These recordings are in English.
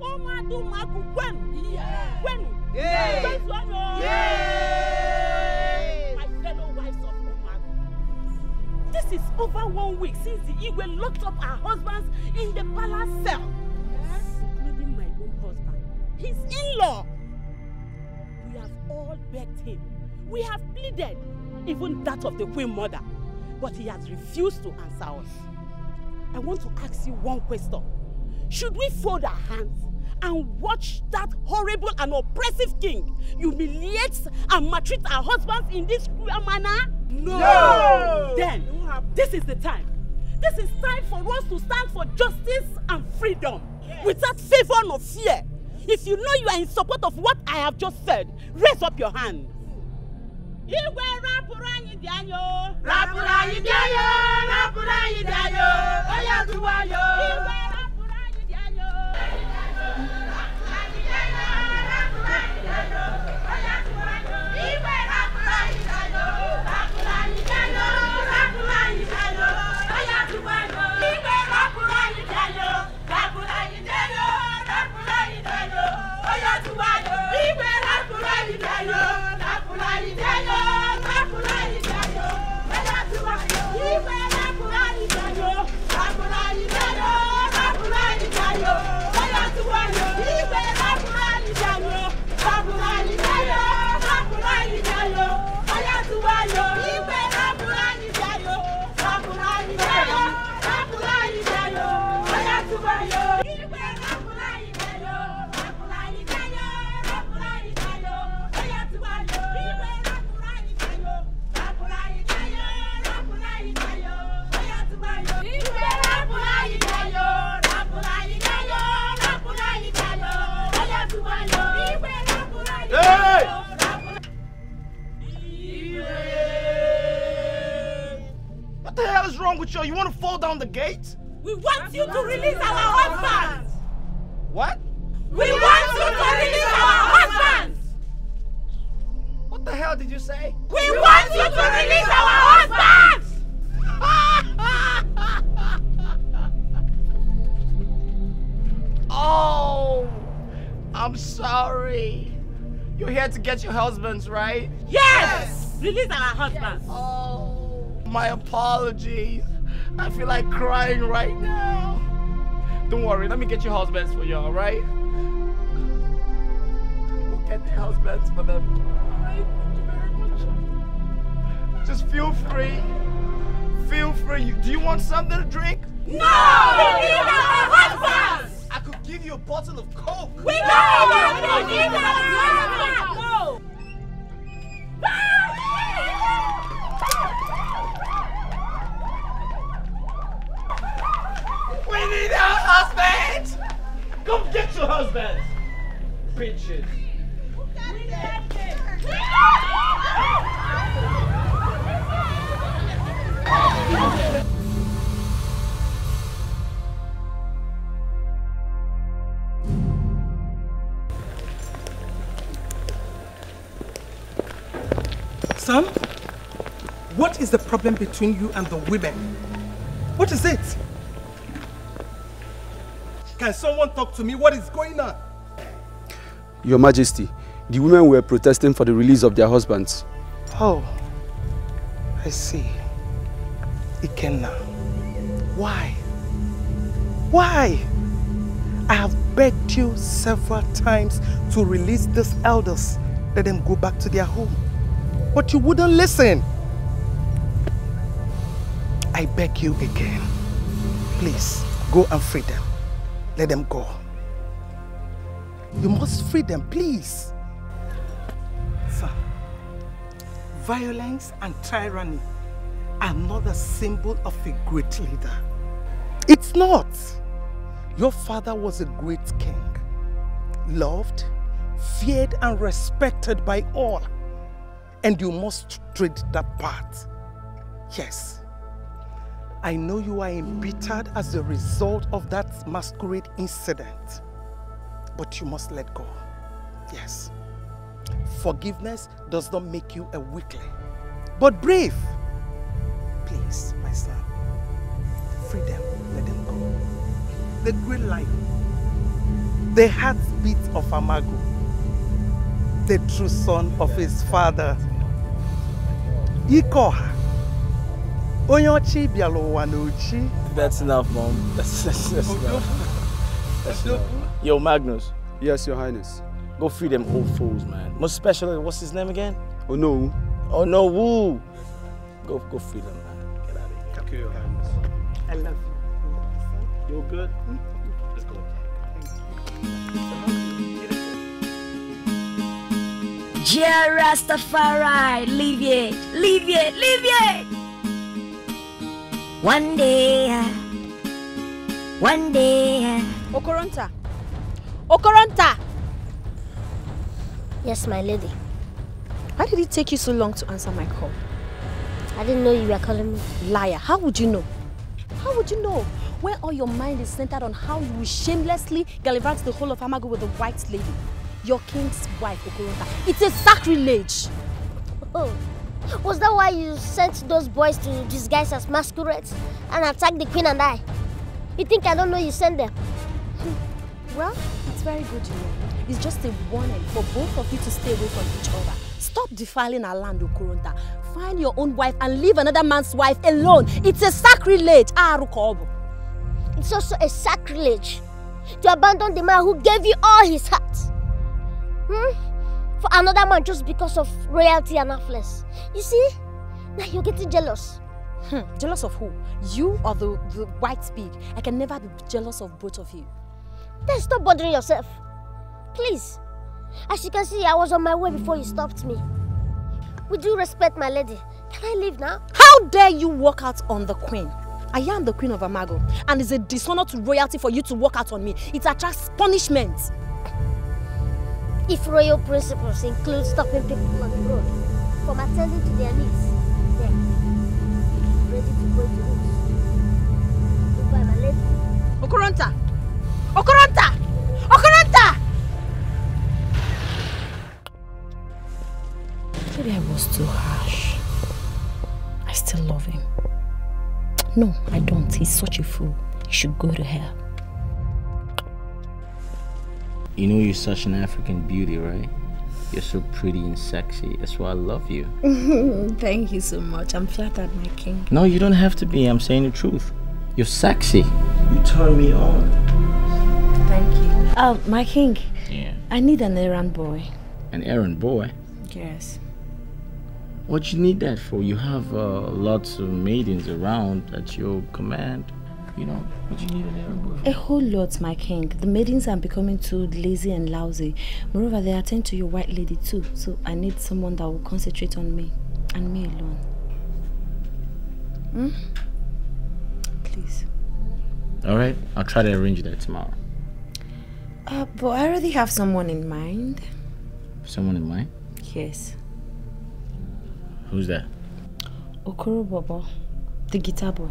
umadu magu gwenu gwenu gbẹzu ọyọ my fellow wives of umadu this is over one week since the igwe locked up our husbands in the palace cell yes. including my own husband his in-law we have all begged him we have pleaded even that of the queen mother but he has refused to answer us. I want to ask you one question. Should we fold our hands and watch that horrible and oppressive king humiliate and maltreat our husbands in this cruel manner? No! no. Then, this is the time. This is time for us to stand for justice and freedom yes. without favor nor fear. If you know you are in support of what I have just said, raise up your hand. Igwe wrong with you? You want to fall down the gate? We want you to release our husbands! What? We, want you to release our husbands! What the hell did you say? We, we want you to release our husbands! oh, I'm sorry. You're here to get your husbands, right? Yes! yes. Release our husbands. Yes. Oh my apologies. I feel like crying right now. Don't worry, let me get your husbands for you, all right? We'll get the husbands for them. All right, thank you very much. Just feel free. Feel free. Do you want something to drink? No! We need our husbands! I could give you a bottle of Coke. We no, don't! We need our husbands! No! Go get your husbands! Bitches. Sam, what is the problem between you and the women? What is it? someone talk to me what is going on. Your Majesty, the women were protesting for the release of their husbands. Oh, I see. Ikenna, why? Why? I have begged you several times to release these elders. Let them go back to their home. But you wouldn't listen. I beg you again. Please, go and free them. Let them go. You must free them, please. Sir, violence and tyranny are not a symbol of a great leader. It's not. Your father was a great king, loved, feared and respected by all. And you must tread that path. Yes. I know you are embittered as a result of that masquerade incident. But you must let go. Yes. Forgiveness does not make you a weakling, but brave. Please, my son, free them, let them go. The green light. the heartbeat of Amago, the true son of his father, Ikoha. Onyochi Bialowanochi. That's enough, Mom. That's, that's, that's enough. That's enough. Yo, Magnus. Yes, Your Highness. Go free them old fools, man. Most special. what's his name again? Oh no. Oh no, woo. Go, go free them, man. Get out of here. Your Highness. I love you. You're good? Mm -hmm. Rastafari. leave it, leave it, leave it! One day, uh, one day. Uh. Okoronta, Okoronta. Yes, my lady. Why did it take you so long to answer my call? I didn't know you were calling me. Liar, how would you know? How would you know? Where all your mind is centered on how you shamelessly gallivant the whole of Amago with a white lady. Your king's wife, Okoronta. It's a sacrilege. Oh. Was that why you sent those boys to disguise as masquerades and attack the queen and I? You think I don't know you sent them? Well, it's very good you It's just a warning for both of you to stay away from each other. Stop defiling our land, Okurunta. Find your own wife and leave another man's wife alone. It's a sacrilege. Ah, Arukobu. It's also a sacrilege to abandon the man who gave you all his heart. Hmm? for another man just because of royalty and affluence. You see? Now you're getting jealous. Hmm, jealous of who? You or the, the white pig? I can never be jealous of both of you. Then stop bothering yourself. Please. As you can see, I was on my way before you stopped me. With due respect, my lady, can I leave now? How dare you walk out on the queen? I am the queen of Amago, and it's a dishonor to royalty for you to walk out on me. It attracts punishment. If royal principles include stopping people on the road from attending to their needs, then ready to go to roots. Goodbye, my lady. Okoronta! Okoronta! Okoronta! Maybe I was too harsh. I still love him. No, I don't. He's such a fool. He should go to hell. You know you're such an African beauty, right? You're so pretty and sexy. That's why I love you. Thank you so much. I'm flattered, my king. No, you don't have to be. I'm saying the truth. You're sexy. You turn me on. Thank you. Oh, my king. Yeah. I need an errand boy. An errand boy? Yes. What you need that for? You have uh, lots of maidens around at your command you know, what you need in A whole lot, my king. The maidens are becoming too lazy and lousy. Moreover, they attend to your white lady too, so I need someone that will concentrate on me and me alone. Hmm? Please. Alright, I'll try to arrange that tomorrow. Uh, but I already have someone in mind. Someone in mind? Yes. Who's that? Okoro Bobo, the guitar boy.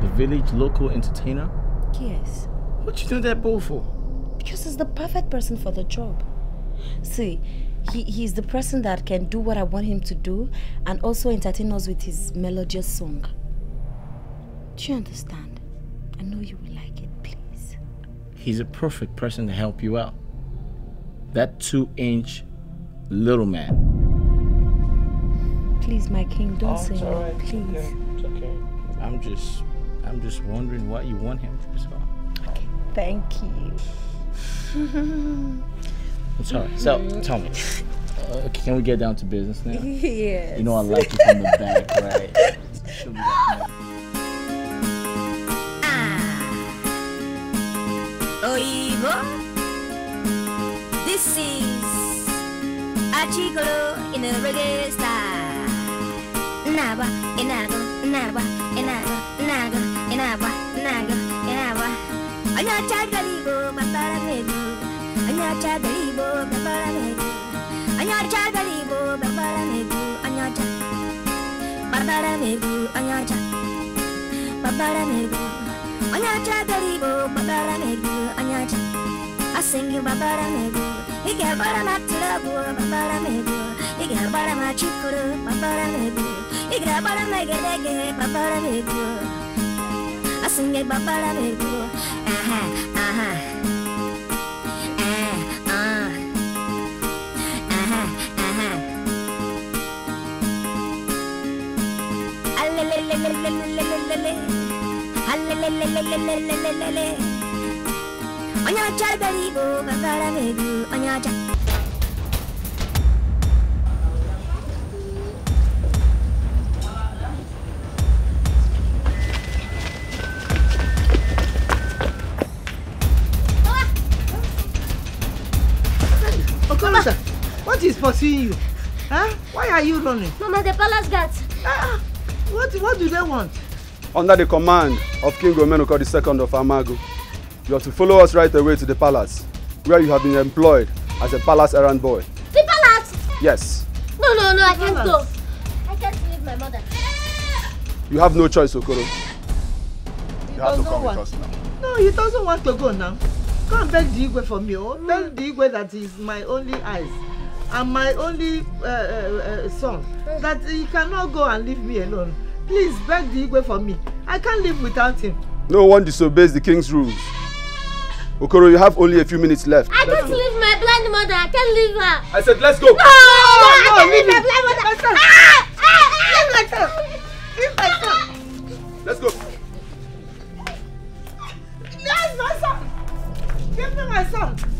The village local entertainer? Yes. What you doing that bull for? Because he's the perfect person for the job. See, he, he's the person that can do what I want him to do and also entertain us with his melodious song. Do you understand? I know you will like it, please. He's a perfect person to help you out. That two-inch little man. Please, my king, don't oh, say no, right. please. It's okay. I'm just I'm just wondering what you want him for. So. Okay, thank you. I'm sorry. So, tell me. Uh, can we get down to business now? Yes. You know I like you from the back, right? Oh me ah. Oigo. This is Achigolo in a reggae style. Naba, enago, naba, enago. Kenapa? Naga, kenapa? Anya caga libo, matara medu. Anya caga libo, matara medu. Anya caga libo, matara medu. Anya caga. Matara medu, anya caga. Matara medu. Anya caga libo, matara medu. Anya caga. I sing you matara medu. Iga bara matlabu, matara medu. Iga bara machikuru, matara medu. Iga bara magerege, matara medu. I sing it babara baby. Uh huh, uh huh. Onya charbari go babara baby. Onya charbari. pursuing you? Huh? Why are you running? Mama, the palace guards. Ah, what, what do they want? Under the command of King Romenuko II of Amago, you have to follow us right away to the palace, where you have been employed as a palace errand boy. The palace? Yes. No, no, no, I can't go. I can't leave my mother. You have no choice, Okoro. You, you have to come want. with us now. No, he doesn't want to go now. Come and beg the Igwe for me. Oh. Mm. Beg the Igwe that he's my only eyes and my only uh, uh, uh son that he cannot go and leave me alone. Please beg the Igwe for me. I can't live without him. No one disobeys the king's rules. Okoro, you have only a few minutes left. I can't leave my blind mother. I can't leave her. I said, let's go. No, no, no I can't no, leave my blind mother. Let's son. Ah, ah, ah. my son. Leave my son. Let's go. That's my son. Give me my son.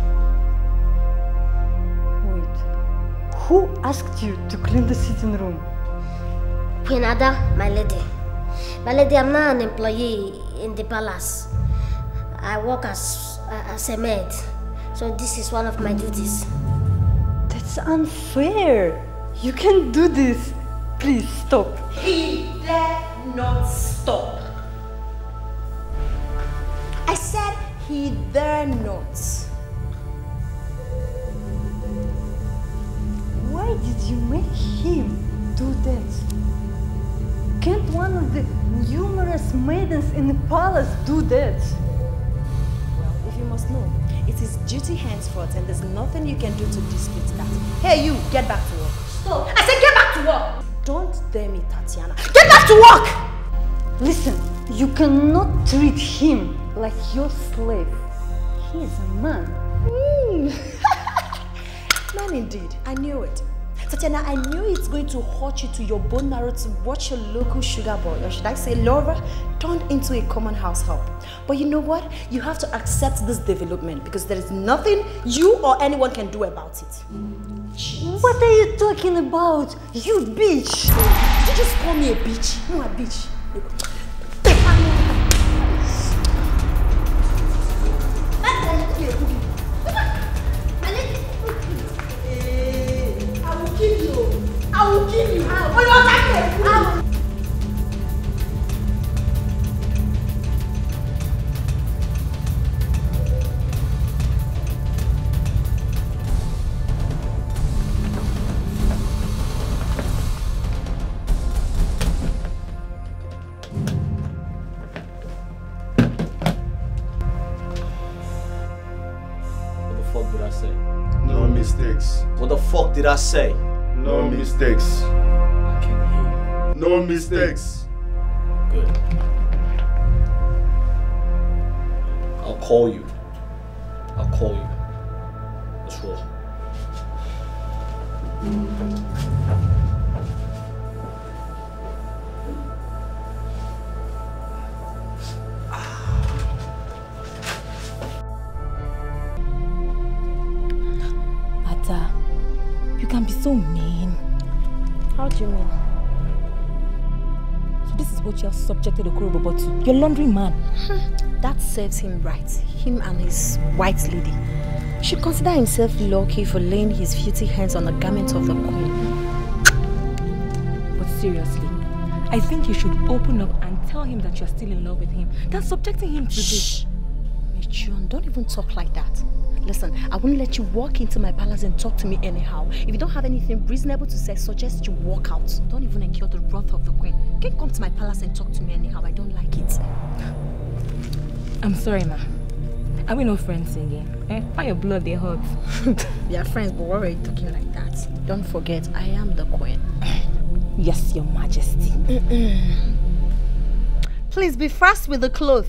Who asked you to clean the sitting room? Queen Ada, my lady. My lady, I'm not an employee in the palace. I work as, uh, as a maid. So this is one of my duties. That's unfair. You can do this. Please stop. He dare not stop. I said he dare not. Why did you make him do that? Can't one of the numerous maidens in the palace do that? Well, if you must know, it is duty henceforth and there's nothing you can do to dispute that. Hey you, get back to work. Stop! I said get back to work! Don't dare me, Tatiana. Get back to work! Listen, you cannot treat him like your slave. He is a man. Mm. man indeed. I knew it. Tatiana, I knew it's going to hurt you to your bone marrow to watch your local sugar boy, or should I say Laura, turned into a common house help. But you know what? You have to accept this development because there is nothing you or anyone can do about it. Jeez. What are you talking about? You bitch! Did you just call me a bitch? No, a bitch. will you What the fuck did I say? No mistakes. What the fuck did I say? No mistakes. I can hear you. No mistakes. Good. I'll call you. I'll call you. So this is what you have subjected Okorobobo to. Your laundry man. Hmm, that serves him right. Him and his white lady. Should consider himself lucky for laying his filthy hands on the garment of the queen. But seriously, I think you should open up and tell him that you're still in love with him. That's subjecting him to Shh. this. Michun, don't even talk like that. Listen, I will not let you walk into my palace and talk to me anyhow. If you don't have anything reasonable to say, suggest you walk out. Don't even incur the wrath of the queen. You can't come to my palace and talk to me anyhow. I don't like it. I'm sorry, ma. Are we no friends again? Eh? Why your blood they hurt? we are friends, but why are you talking like that? Don't forget, I am the queen. yes, your majesty. Please be fast with the cloth.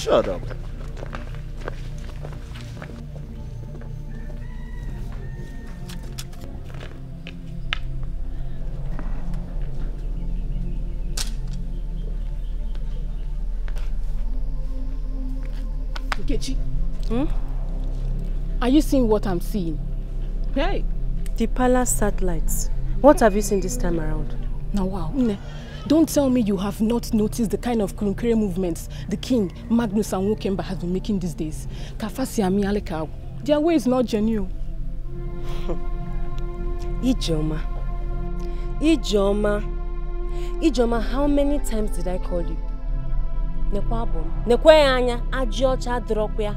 Shut up. Hmm? Are you seeing what I'm seeing? Hey! The palace satellites. What have you seen this time around? Now wow. Don't tell me you have not noticed the kind of Kurunkere movements the king, Magnus and Wokemba has been making these days. Kafasi and Mialeka, their way is not genuine. Ijoma. Ijoma. Ijoma, how many times did I call you? Nekwa abom. Nekwe anya, ajiocha dropia.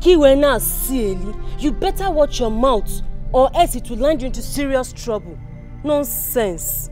Kiwe na sieli. You better watch your mouth or else it will land you into serious trouble. Nonsense.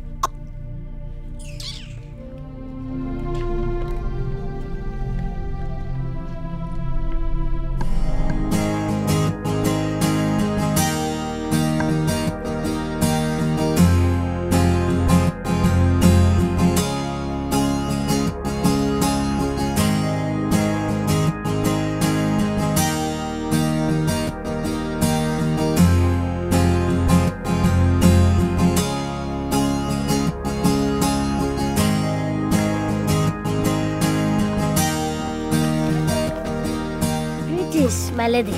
lady.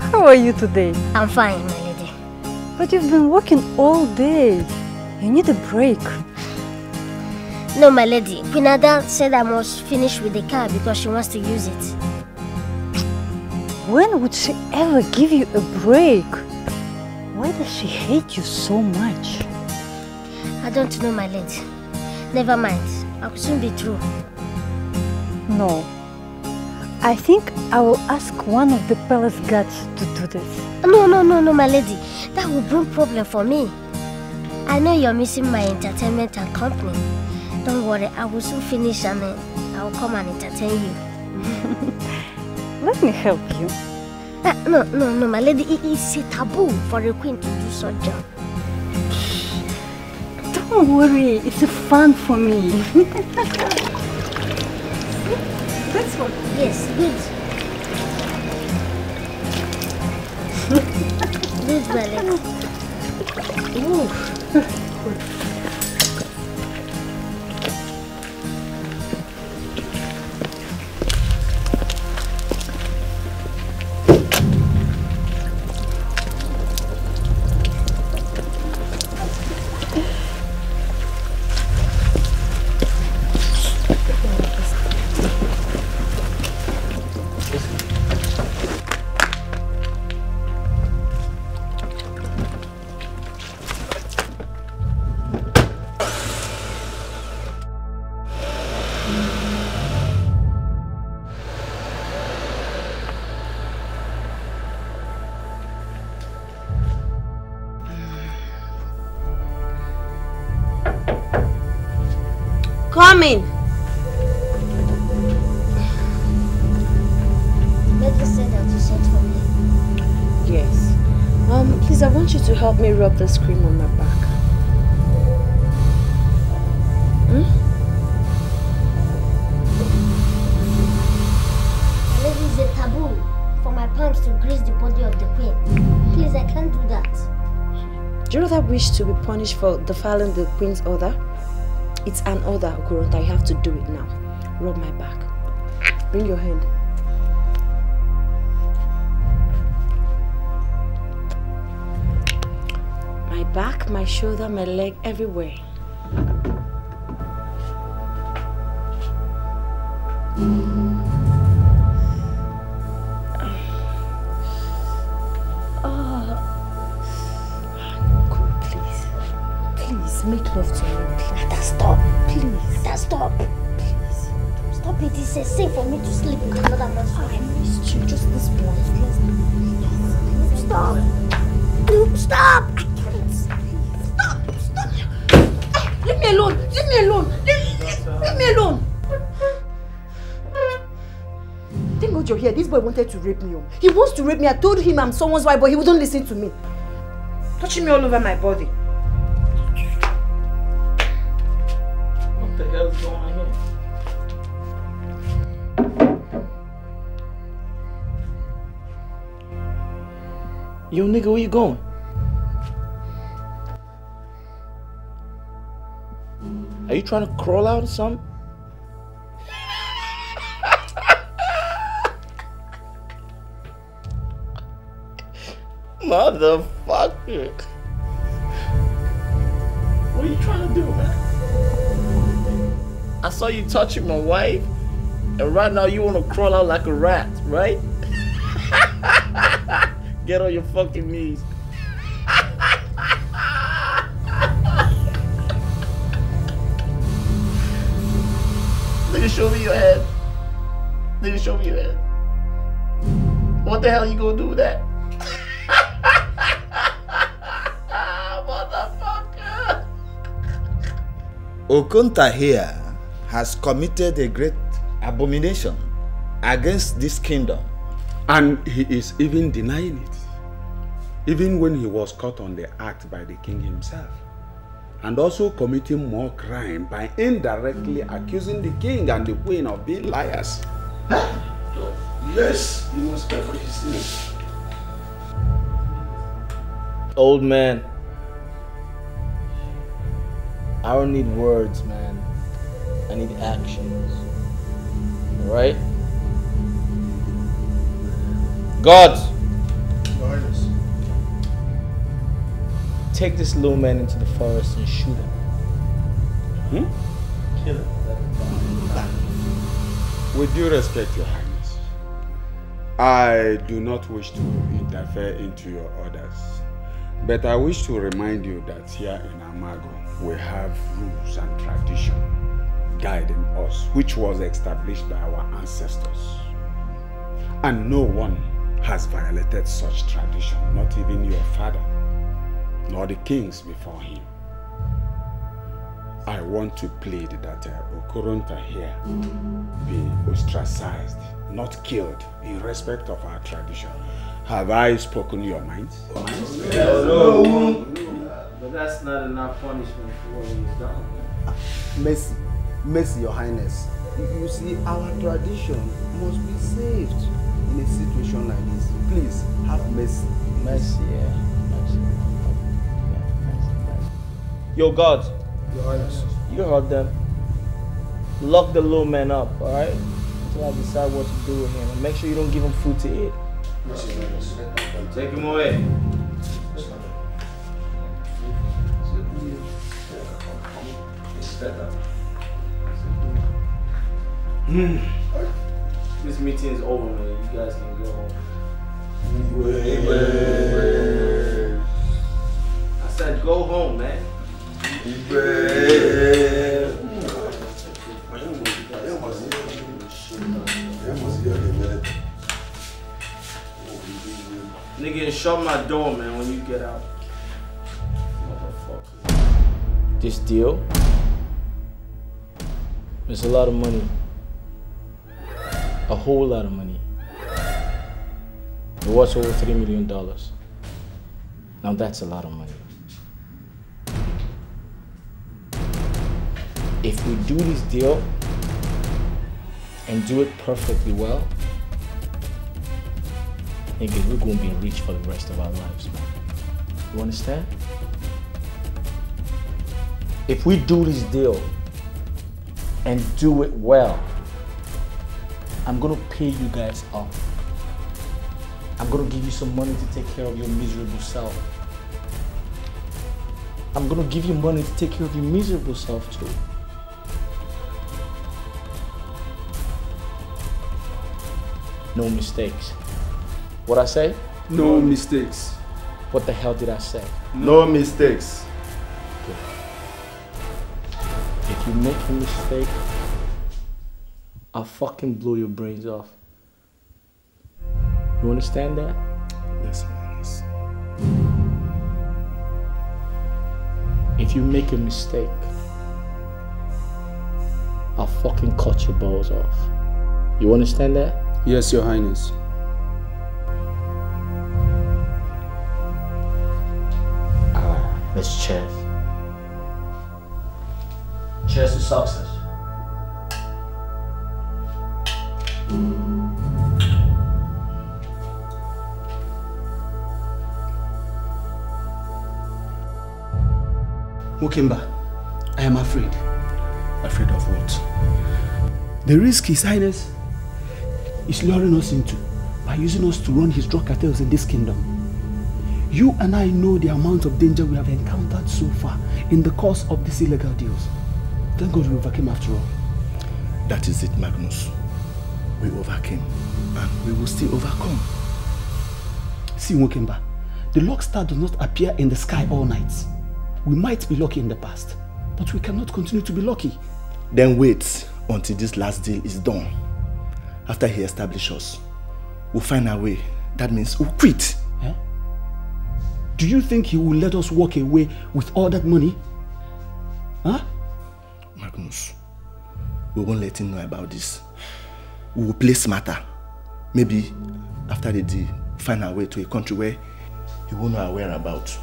How are you today? I'm fine, my lady. But you've been working all day. You need a break. No, my lady. Quinada said I must finish with the car because she wants to use it. When would she ever give you a break? Why does she hate you so much? I don't know, my lady. Never mind. I'll soon be through. No, I think I will ask one of the palace guards to do this. No, no, no, no, my lady. That will bring problem for me. I know you're missing my entertainment and company. Don't worry, I will soon finish and uh, I will come and entertain you. Let me help you. Uh, no, no, no, my lady. It is a taboo for a queen to do such job. Don't worry, it's fun for me. This one. Yes, good. good, Malik. Ooh. help me rub this cream on my back? Hmm? This is a taboo for my palms to grease the body of the queen. Please, I can't do that. Do you rather wish to be punished for defiling the queen's order? It's an order, Okurunta. You have to do it now. Rub my back. Bring your hand. my shoulder, my leg, everywhere. your here. this boy wanted to rape me. Oh. He wants to rape me. I told him I'm someone's wife, but he wouldn't listen to me. Touching me all over my body. What the hell is going on here? Yo, nigga, where you going? Are you trying to crawl out or something? Motherfucker. What are you trying to do, man? I saw you touching my wife, and right now you want to crawl out like a rat, right? Get on your fucking knees. you show me your head. you show me your head. What the hell are you gonna do with that? Okunta here has committed a great abomination against this kingdom. And he is even denying it. Even when he was caught on the act by the king himself. And also committing more crime by indirectly accusing the king and the queen of being liars. yes, he must pay for his sins. Old man, I don't need words, man. I need actions. Right? God. Take this little man into the forest and shoot him. Hmm? Kill him. With due respect, Your Highness, I do not wish to interfere into your orders, but I wish to remind you that here in Amago, we have rules and tradition guiding us, which was established by our ancestors. And no one has violated such tradition, not even your father, nor the kings before him. I want to plead that uh, Okoronta here be ostracized, not killed, in respect of our tradition. Have I spoken your mind? Yes. No. But that's not enough punishment for what he's done. Ah, mercy, mercy, your highness. You see, our tradition must be saved in a situation like this. Please, have mercy. Mercy, yeah. Mercy. mercy, mercy. Your God. Your highness. You heard them. Lock the little man up, alright? Until I decide what to do with him. And make sure you don't give him food to eat. Take him away. better. Hmm. This meeting is over, man. You guys can go home. I said go home, man. Nigga, shut my door, man, when you get out. This deal? It's a lot of money. A whole lot of money. It was over $3 million. Now that's a lot of money. If we do this deal and do it perfectly well, nigga, we're gonna be rich for the rest of our lives, man. You understand? If we do this deal and do it well. I'm going to pay you guys off. I'm going to give you some money to take care of your miserable self. I'm going to give you money to take care of your miserable self too. No mistakes. What I say? No mistakes. What the hell did I say? No mistakes. if you make a mistake, I'll fucking blow your brains off. You understand that? Yes, man. Yes. If you make a mistake, I'll fucking cut your balls off. You understand that? Yes, Your Highness. Ah, Miss Chess. Cheers to success. Mukimba, I am afraid. Afraid of what? The risk His Highness is luring us into by using us to run his drug cartels in this kingdom. You and I know the amount of danger we have encountered so far in the course of these illegal deals. Thank God we overcame after all. That is it, Magnus. We overcame and we will still overcome. See, Wokemba, the luck star does not appear in the sky all night. We might be lucky in the past, but we cannot continue to be lucky. Then wait until this last deal is done. After he establishes us, we'll find our way. That means we'll quit. Do you think he will let us walk away with all that money? Huh? Magnus. We won't let him know about this. We will place matter. Maybe after the deal, find our way to a country where he won't know our whereabouts.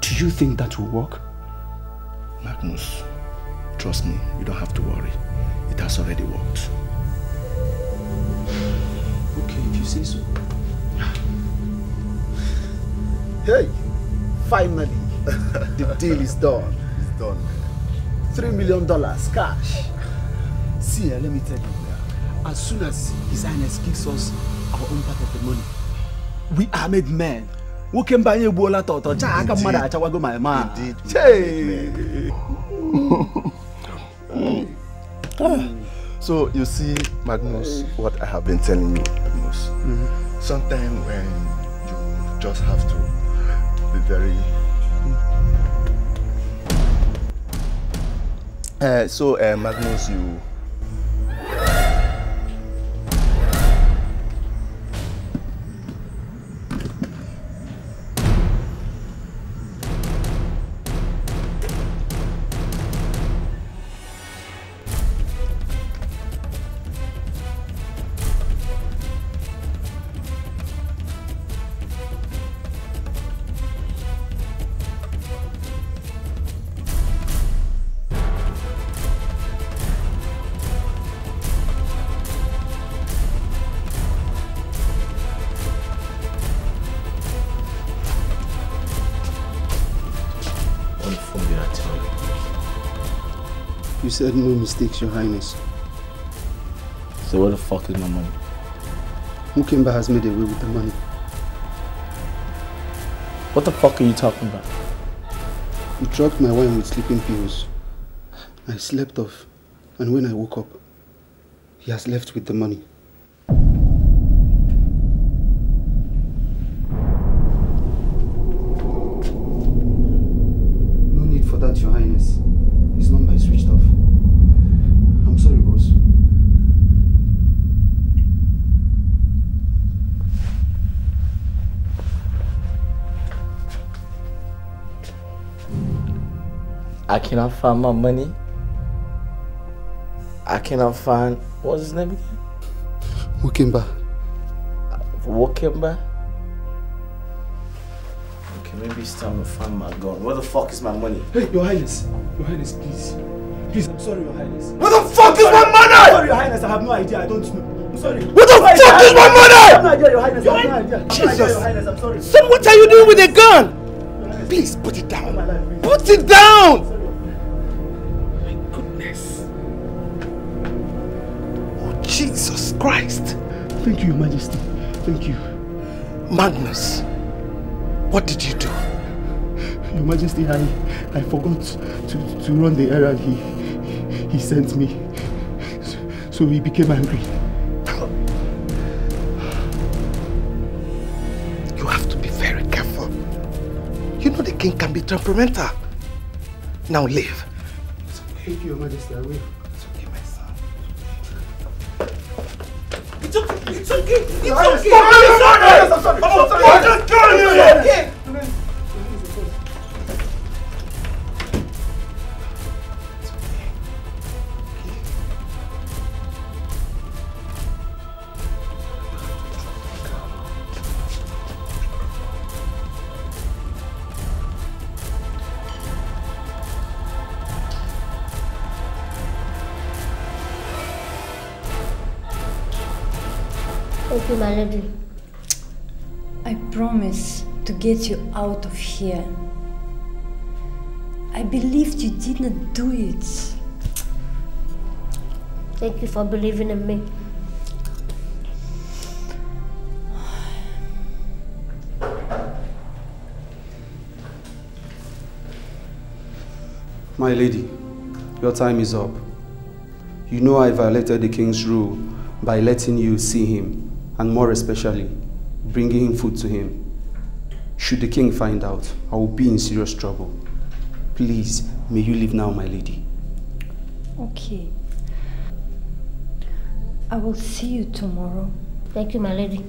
Do you think that will work? Magnus, trust me, you don't have to worry. It has already worked. Okay, if you say so. Hey, finally, the deal is done have done. Three million dollars cash. See, let me tell you, as soon as His Highness gives us our own part of the money, we are made men. nwoke mba anyị egbuola tọtọ chaa aka mmadụ achawago my man so you see magnus what i have been telling you magnus mm -hmm. sometimes when you just have to be very Uh, so, uh, Magnus, you said no mistakes, Your Highness. So where the fuck is my money? Mukamba has made away with the money. What the fuck are you talking about? You drugged my wine with sleeping pills. I slept off, and when I woke up, he has left with the money. cannot find my money. I cannot find what's his name again? Wakimba. Wakimba? Okay, maybe it's time to find my gun. Where the fuck is my money? Hey, Your Highness. Your Highness, please. Please, I'm sorry, Your Highness. Where the fuck is my money? I'm sorry, Your Highness. I have no idea. I don't know. sorry. What the Where fuck is my money? I have no idea, Your Highness. I have no idea. Jesus. Son, what are you doing with a gun? Please, put it down. Put it down! Christ. Thank you, Your Majesty. Thank you. Magnus, what did you do? Your Majesty, I, I forgot to, to run the errand he, he sent me. So, so he became angry. You have to be very careful. You know the king can be temperamental. Now leave. Thank you, Your Majesty, I will. It's okay. Stop it, sorry. malady. I promise to get you out of here. I believed you didn't do it. Thank you for believing in me. My lady, your time is up. You know I violated the king's rule by letting you see him and more especially, bringing food to him. Should the king find out, I will be in serious trouble. Please, may you leave now, my lady. Okay. I will see you tomorrow. Thank you, my lady.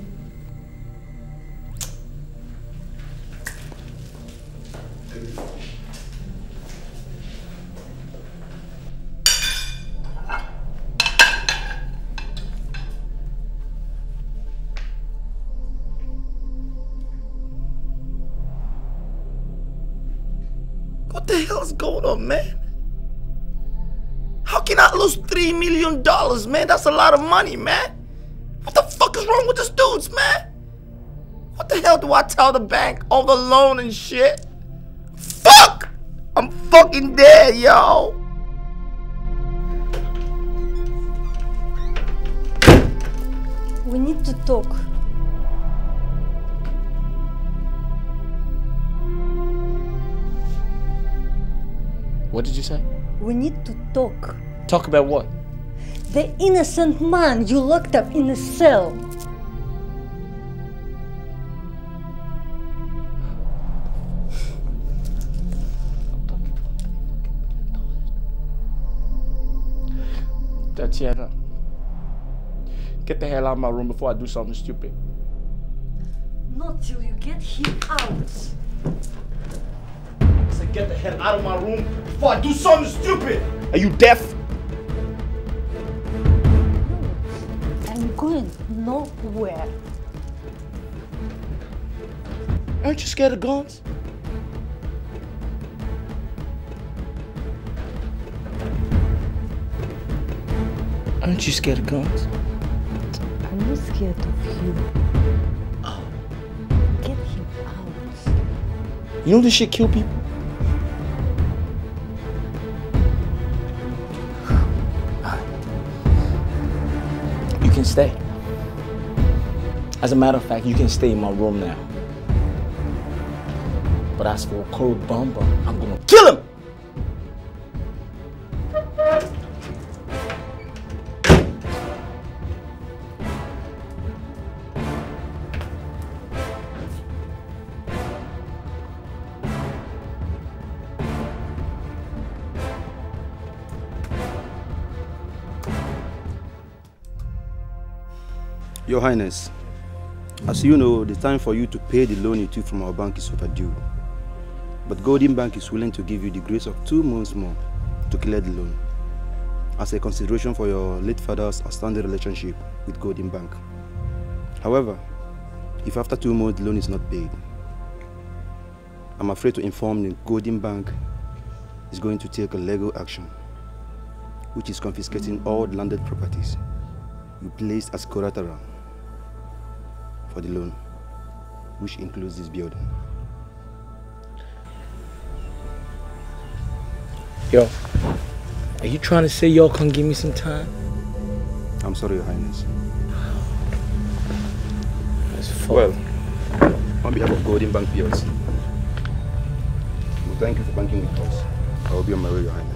up, oh, man. How can I lose $3 million, man? That's a lot of money, man. What the fuck is wrong with this dudes, man? What the hell do I tell the bank? All the loan and shit? Fuck! I'm fucking dead, yo! We need to talk. What did you say? We need to talk. Talk about what? The innocent man you locked up in a cell. Tatiana, get the hell out of my room before I do something stupid. Not till you get him out. I get the hell out of my room before I do something stupid. Are you deaf? I'm going nowhere. Aren't you scared of guns? Aren't you scared of guns? I'm not scared of you. Oh. Get him out. You know this shit kill people? can stay. As a matter of fact, you can stay in my room now. But as for Cold Bomber, I'm gonna kill him! Your Highness, as you know, the time for you to pay the loan you took from our bank is overdue. But Golden Bank is willing to give you the grace of two months more to clear the loan as a consideration for your late father's outstanding relationship with Golden Bank. However, if after two months the loan is not paid, I'm afraid to inform the Golden Bank is going to take a legal action, which is confiscating all landed properties you placed as collateral for the loan, which includes this building. Yo, are you trying to say y'all can give me some time? I'm sorry, Your Highness. Well, on behalf of Golden Bank PLC, we thank you for banking with us. I will be on my way, Your Highness.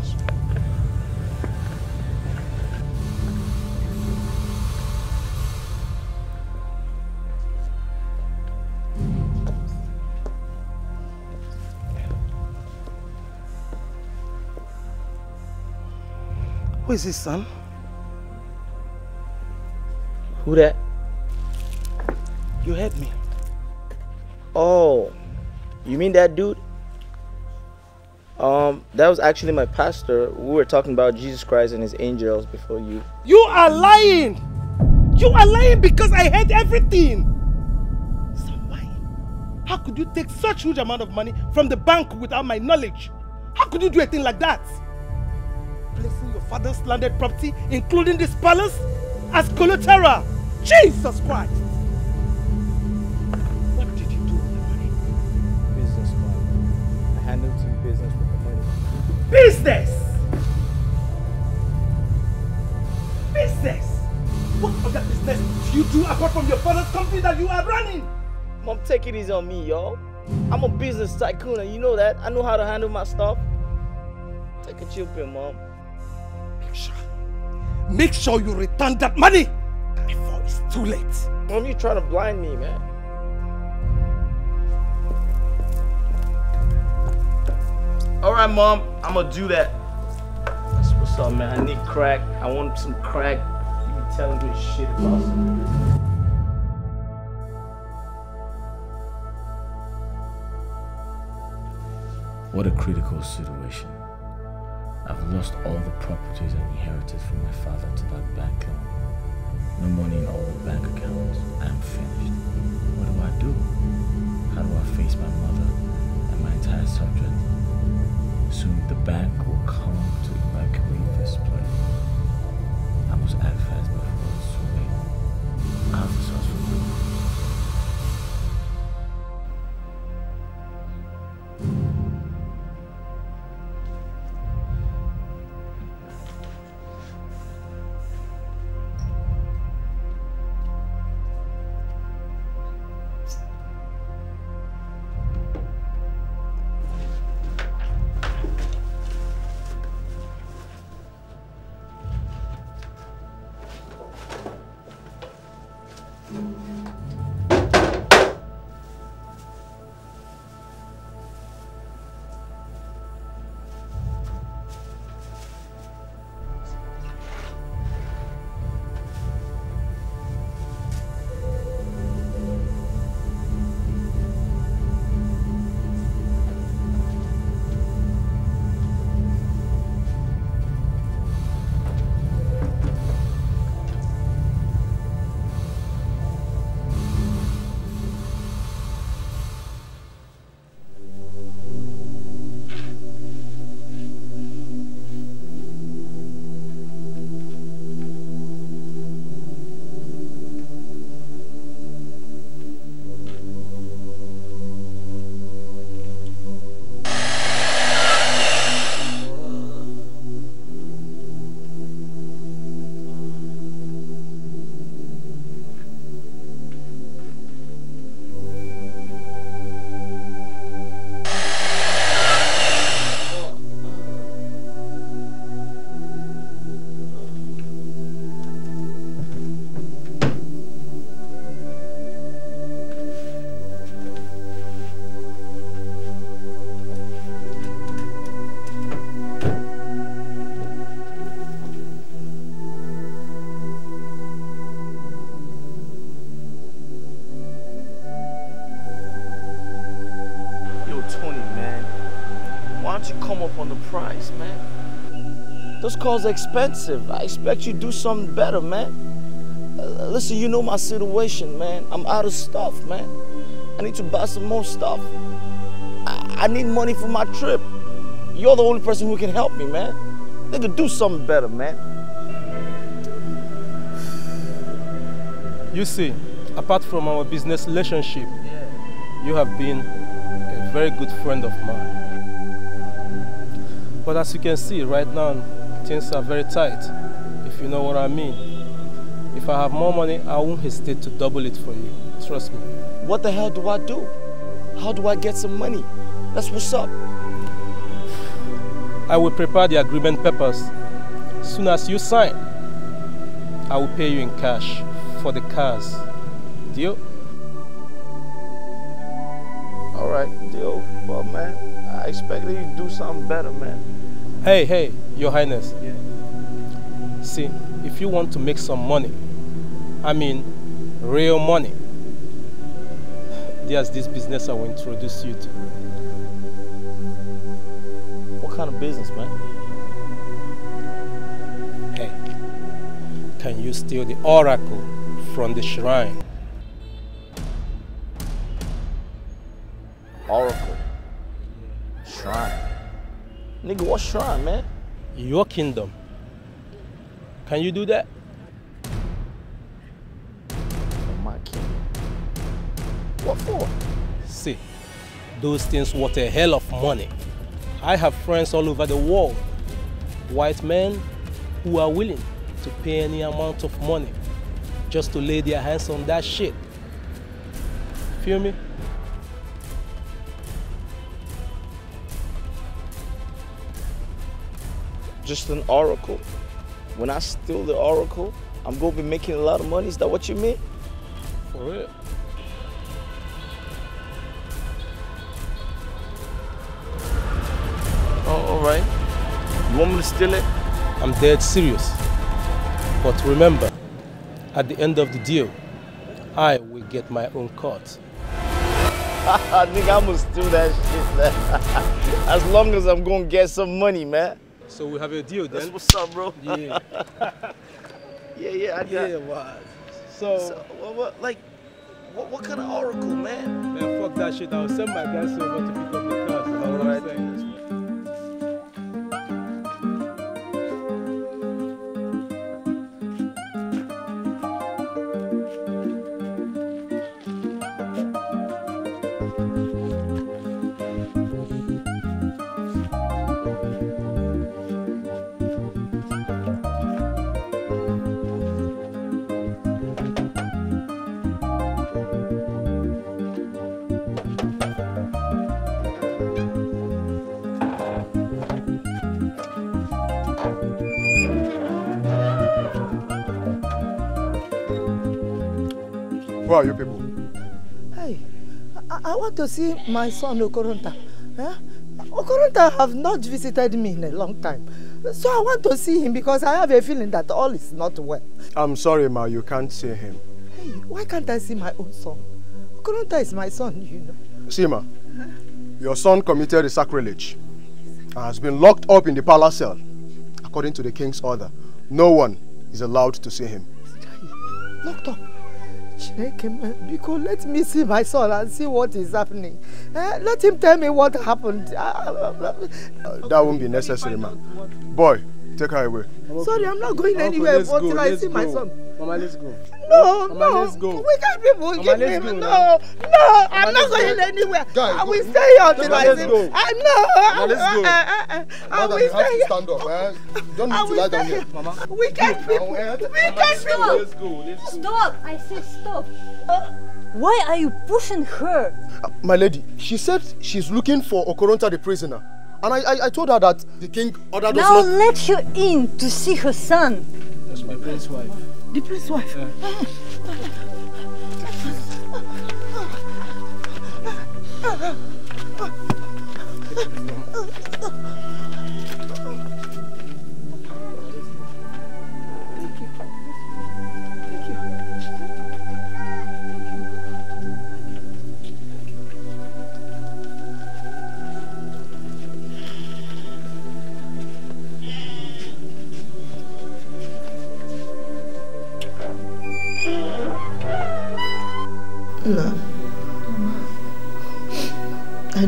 Who is his son? Who that? You heard me. Oh, you mean that dude? Um, that was actually my pastor. We were talking about Jesus Christ and his angels before you. You are lying! You are lying because I heard everything! Somebody, how could you take such huge amount of money from the bank without my knowledge? How could you do a thing like that? father's landed property, including this palace, as collateral. Jesus Christ! What did you do with the money? Business, Father. I handled some business with the money. Business! Business! What other business do you do apart from your father's company that you are running? Mom, take it easy on me, y'all. I'm a business tycoon and you know that. I know how to handle my stuff. Take a chill pill, Mom. Make sure you return that money before it's too late. Don't you try to blind me, man. All right, Mom, I'm gonna do that. That's what's up, man. I need crack. I want some crack. You be telling me shit about some What a critical situation. I've lost all the properties I inherited from my father to that banker. No money in all the bank accounts. I'm finished. What do I do? How do I face my mother and my entire subject? Soon the bank will come to evacuate this place. I must act fast before it's too late. price, man. Those cars are expensive. I expect you to do something better, man. Uh, listen, you know my situation, man. I'm out of stuff, man. I need to buy some more stuff. I, I need money for my trip. You're the only person who can help me, man. Nigga, do something better, man. You see, apart from our business relationship, yeah. you have been a very good friend of mine. But as you can see right now, things are very tight, if you know what I mean. If I have more money, I won't hesitate to double it for you. Trust me. What the hell do I do? How do I get some money? That's what's up. I will prepare the agreement papers. soon as you sign, I will pay you in cash for the cars. Deal? All right, deal. Well, man, I expect you to do something better, man. Hey, hey, Your Highness. Yeah. See, if you want to make some money, I mean real money, there's this business I will introduce you to. What kind of business, man? Hey, can you steal the oracle from the shrine? Nigga, what's wrong, man? Your kingdom. Can you do that? Oh, my kingdom. What for? See, those things worth a hell of money. I have friends all over the world, white men who are willing to pay any amount of money just to lay their hands on that shit. Feel me? just an oracle. When I steal the oracle, I'm gonna be making a lot of money. Is that what you mean? For real. Oh, all right. You want me to steal it? I'm dead serious. But remember, at the end of the deal, I will get my own cut. I think I'm gonna steal that shit. as long as I'm gonna get some money, man. So we have a deal then. That's what's up, bro. Yeah. yeah, yeah, I got Yeah, what? So, so what, what, like, what, what kind of oracle, man? Man, fuck that shit. I'll send my guys over to pick up the car. All right. Who are you people? Hey, I, I want to see my son Okoronta. Eh? Okoronta have not visited me in a long time. So I want to see him because I have a feeling that all is not well. I'm sorry, Ma, you can't see him. Hey, why can't I see my own son? Okoronta is my son, you know. See, Ma, your son committed a sacrilege and has been locked up in the palace cell. According to the king's order, no one is allowed to see him. Locked up? Because let me see my son and see what is happening. Eh, let him tell me what happened. Uh, that won't be necessary, ma. Boy, take her away. Sorry, I'm not going anywhere until I see my son. Mama, let's go. No, Mama, no. Let's go. We can't be forgive me. Go, no, no. Mama, I'm not going go. anywhere. Guys, I will stay here until I see. Go. I know. Mama, let's go. Uh, uh, uh, I, I, I, I will stay here. Stand up. Eh? Don't need to lie down here, Mama. We can't be. Eh? We can't be. let Let's go. Stop! I said stop. why are you pushing her? Uh, my lady, she said she's looking for Okoronta the prisoner. And I, I, I told her that the king ordered us not... Now let her in to see her son. That's my prince wife. plus soif.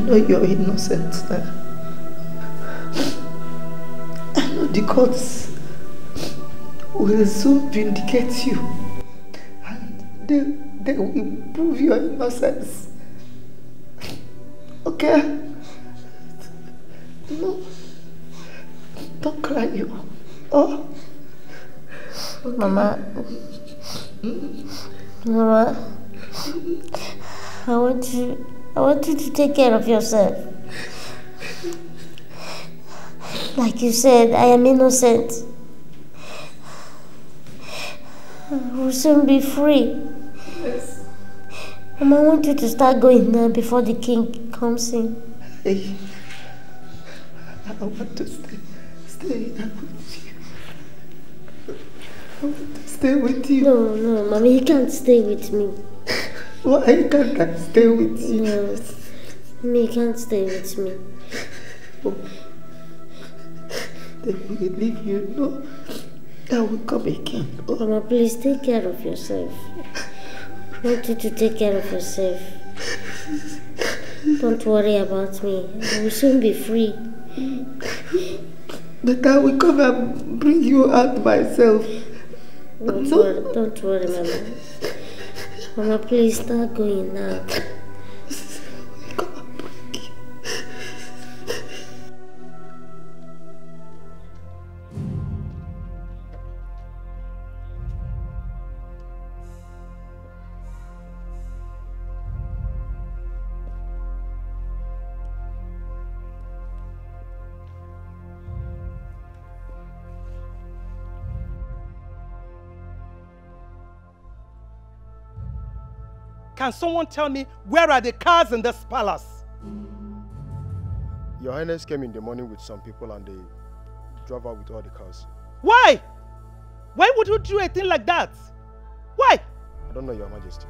know you're innocent. I know the courts will soon vindicate you. And they, they will prove your innocence. Okay? No. Don't cry you. Oh. Okay. Mama. Hmm? Mama. I want you I want you to take care of yourself. Like you said, I am innocent. I will soon be free. Yes. Mom, I want you to start going now before the king comes in. I want to stay, stay with you. I want to stay with you. No, no, mommy, you can't stay with me. Why can't I stay with you? No, you can't stay with me. Oh. Then we leave you, no? I will come again. Oh. Mama, please take care of yourself. I want you to take care of yourself. Don't worry about me. I will soon be free. But I will come and bring you out myself. Don't, no? worry, don't worry, Mama. I'm a police dog going now. Can someone tell me where are the cars in this palace? Your Highness came in the morning with some people and they drove out with all the cars. Why? Why would you do a thing like that? Why? I don't know, Your Majesty.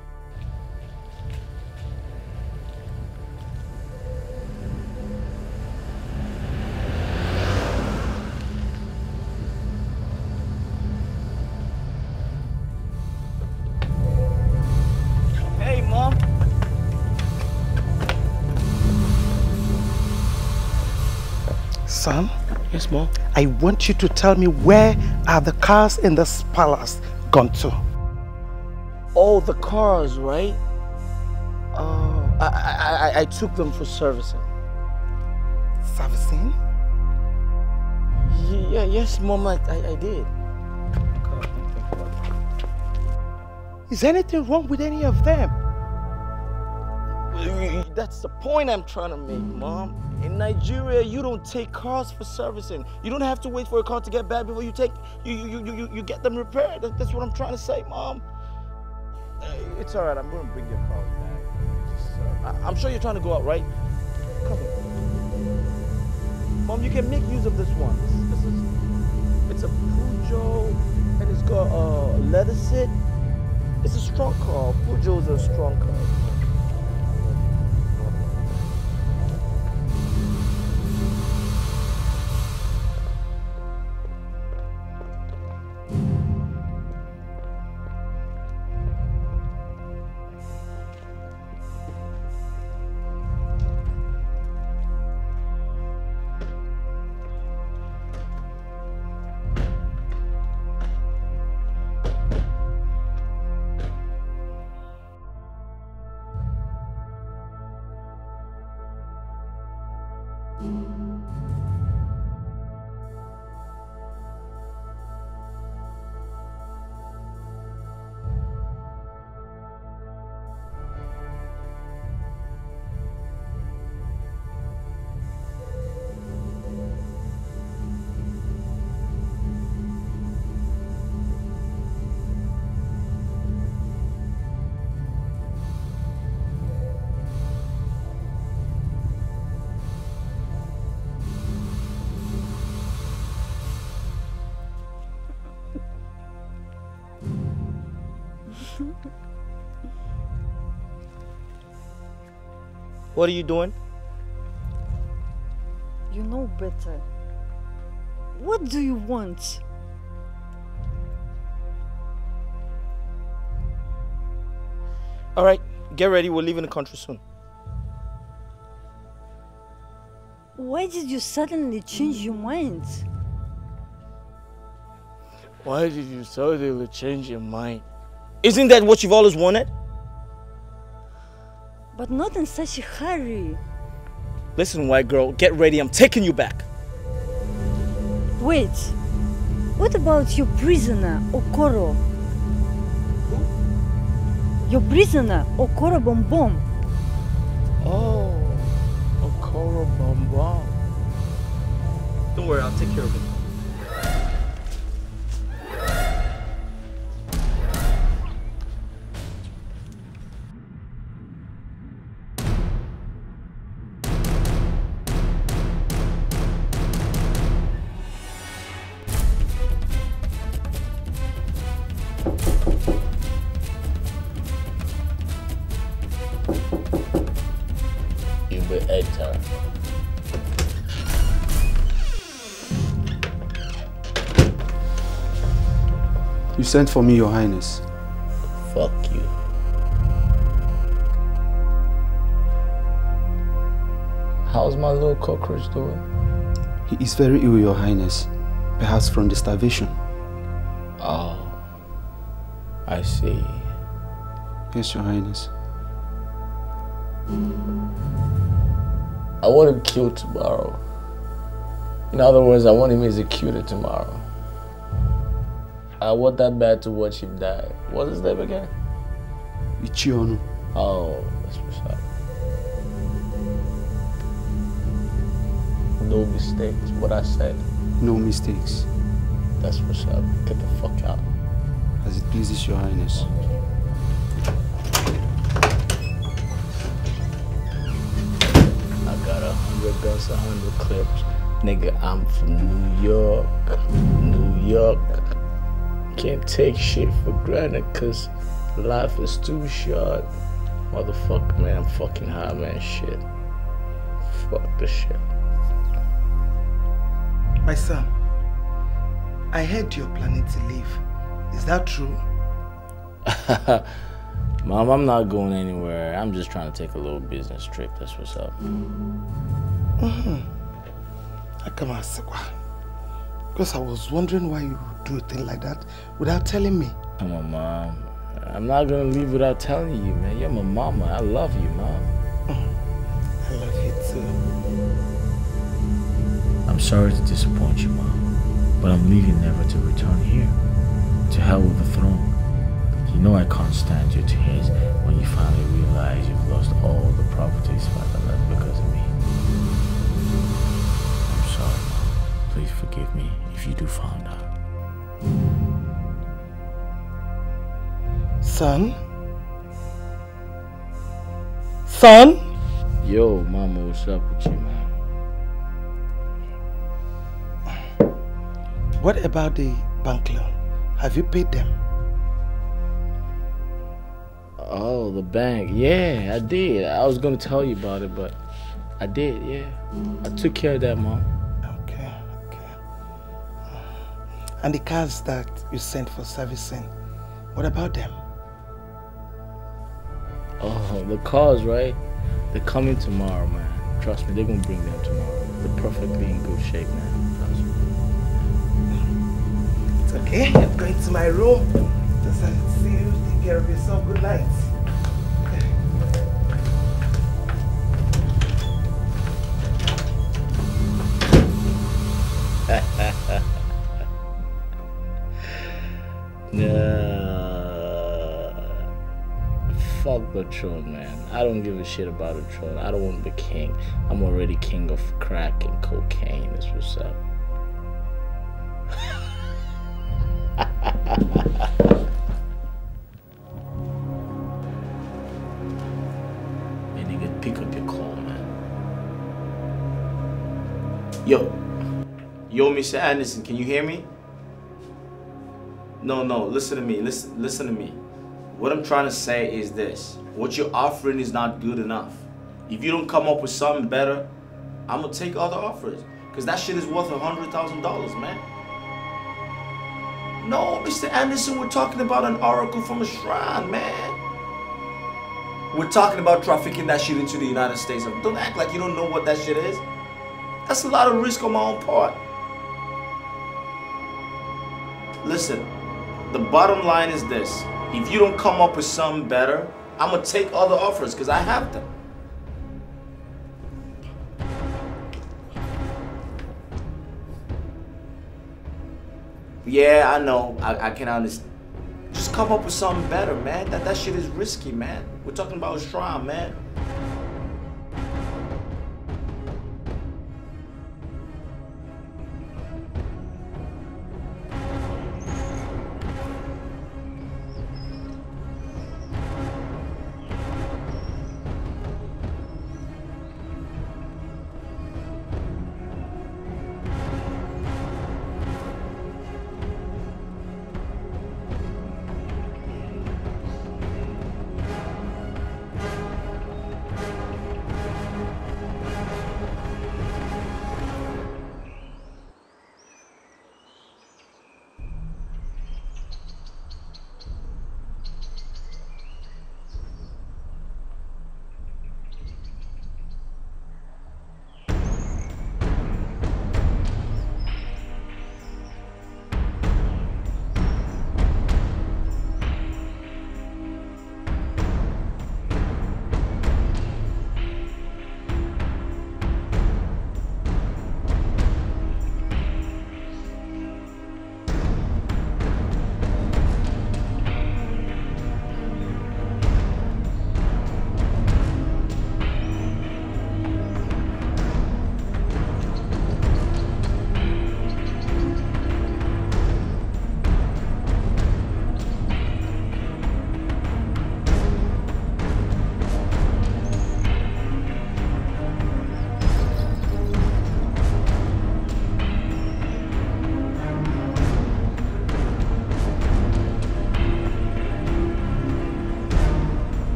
Yes, mom. I want you to tell me where are the cars in this palace gone to? Oh, the cars, right? Oh, I, I, I took them for servicing. Servicing? Yeah, yes, mom, I, I, I did. Is anything wrong with any of them? That's the point I'm trying to make, Mom. In Nigeria, you don't take cars for servicing. You don't have to wait for a car to get bad before you take you you you you, you get them repaired. that's what I'm trying to say, Mom. It's all right. I'm going to bring your car back. Just, uh, I'm sure you're trying to go out, right? Come here, Mom. You can make use of this one. This, this is it's a Pujo, and it's got a leather seat. It's a strong car. Pujo's a strong car. What are you doing? You know better. What do you want? All right, get ready. We're leaving the country soon. Why did you suddenly change your mind? Why did you suddenly change your mind? Isn't that what you've always wanted? but not in such a hurry. Listen, white girl, get ready. I'm taking you back. Wait. What about your prisoner, Okoro? Your prisoner, Okoro Bombom. Oh, Okoro Bombom. Don't worry, I'll take care of him. sent for me, Your Highness. Fuck you. How's my little cockroach doing? He is very ill, Your Highness. Perhaps from the starvation. Oh, I see. Yes, Your Highness. I want him killed tomorrow. In other words, I want him executed tomorrow. I want that man to watch him die. What's his name again? Ichionu. Oh, that's what's up. No mistakes, what I said. No mistakes. That's what's up. Get the fuck out. As it pleases your highness. I got a hundred guns, a hundred clips. Nigga, I'm from New York. New York can't take shit for granted because life is too short. Motherfucker, man, I'm fucking high, man. Shit. Fuck the shit. My son, I heard you're planning to leave. Is that true? Mom, I'm not going anywhere. I'm just trying to take a little business trip. That's what's up. Mm-hmm. I come out, because I was wondering why you would do a thing like that without telling me. Come on, Mom. I'm not going to leave without telling you, man. You're my mama. I love you, Mom. Mm-hmm. I love you, too. I'm sorry to disappoint you, Mom. But I'm leaving never to return here. To hell with the throne. You know I can't stand your tears when you finally realize you've lost all the properties father left because of me. I'm sorry, Mom. Please forgive me if you do find her. Son? Son? Yo, mama, what's up with you, man? What about the bank loan? Have you paid them? Oh, the bank. Yeah, I did. I was going to tell you about it, but I did, yeah. I took care of that, mom. And the cars that you sent for servicing, what about them? Oh, the cars, right? They're coming tomorrow, man. Trust me, they're gonna bring them tomorrow. They're perfectly in good shape, man. Trust me. It's okay. I'm going to my room. Just see you. Take care of yourself. Good night. Ha ha ha. Uh, fuck fuck throne, man. I don't give a shit about throne. I don't want to be king. I'm already king of crack and cocaine. Is what's up. man, nigga, pick up your call, man. Yo, yo, Mr. Anderson, can you hear me? No, no, listen to me. Listen, listen to me. What I'm trying to say is this. What you're offering is not good enough. If you don't come up with something better, I'm gonna take other offers. Cause that shit is worth a hundred thousand dollars, man. No, Mr. Anderson, we're talking about an oracle from a shrine, man. We're talking about trafficking that shit into the United States. Don't act like you don't know what that shit is. That's a lot of risk on my own part. Listen, the bottom line is this. If you don't come up with something better, I'm going to take other offers because I have them. Yeah, I know. I, I can understand. Just come up with something better, man. That, that shit is risky, man. We're talking about Shroud, man.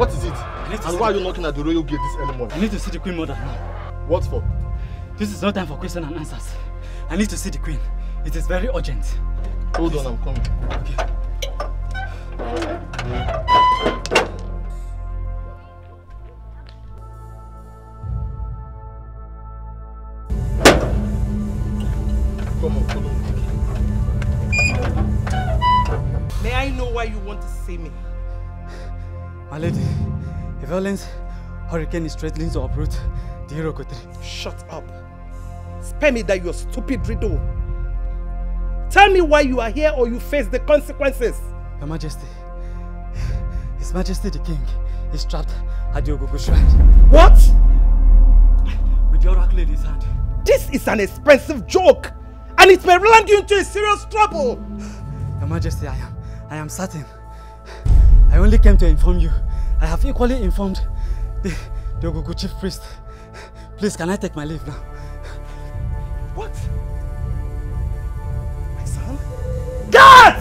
What is it? And why are you knocking at the royal gate this early morning? I need to see the queen mother now. What for? This is not time for questions and answers. I need to see the queen. It is very urgent. Hold Please. on, I'm coming. Okay. hurricane is threatening to uproot the hero Irokotri. Shut up. Spare me that your stupid riddle. Tell me why you are here or you face the consequences. Your Majesty, His Majesty the King is trapped at the Ogogo Shrine. What? With the oracle in his hand. This is an expensive joke and it may land you into a serious trouble. Your Majesty, I am, I am certain. I only came to inform you I have equally informed the, the Ogugu chief priest. Please, can I take my leave now? What? My son? God!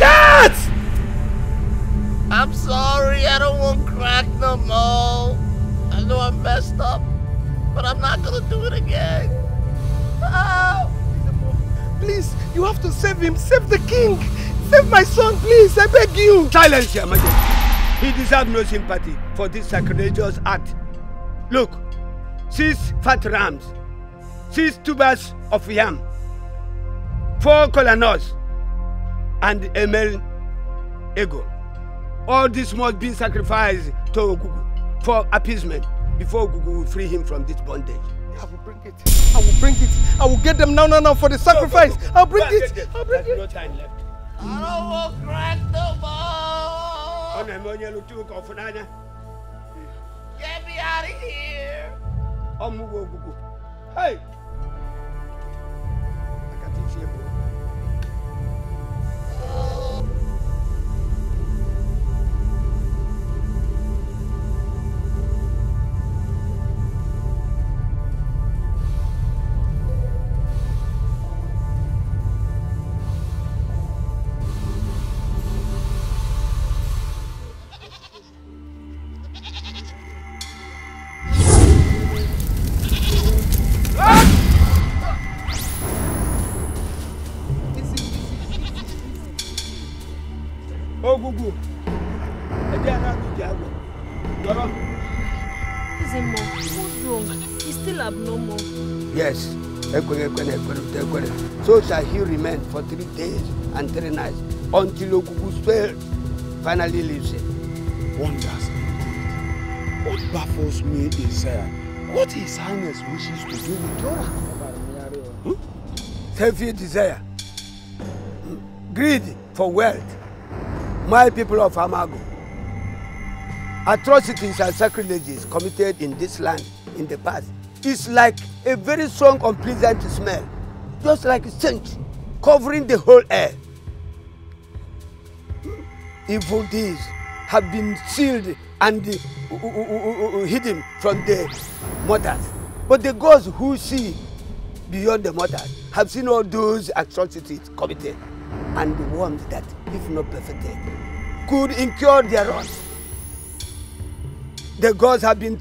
God! I'm sorry, I don't want crack no more. I know I messed up, but I'm not gonna do it again. Please, you have to save him. Save the king. Save my son, please. I beg you. Silence him again. He deserves no sympathy for this sacrilegious act. Look, six fat rams, six tubers of yam, four colonels, and a male ego. All this must be sacrificed to Ogugu for appeasement before Ogugu will free him from this bondage. I will bring it. I will bring it. I will get them now, now, now for the sacrifice. Go, go, go, I'll bring it. I'll bring There's it. No time left. I don't want crack Ọ na-eme onye lụta ụka ọfụ n'anya. Get me out of here. Oh mụgo ogwugwu. Hey! Akata isi ebu. and three nights until Okuku spell finally leaves him. Wonders indeed. What baffles me is uh, what His Highness wishes to do with Dora. Hmm? Selfish desire, hmm? greed for wealth, my people of Amago. Atrocities and sacrileges committed in this land in the past is like a very strong, unpleasant smell, just like a stench covering the whole air evil deeds have been sealed and uh, uh, uh, hidden from the mothers. But the gods who see beyond the mothers have seen all those atrocities committed and warned that, if not perfected, could incur their wrath. The gods have been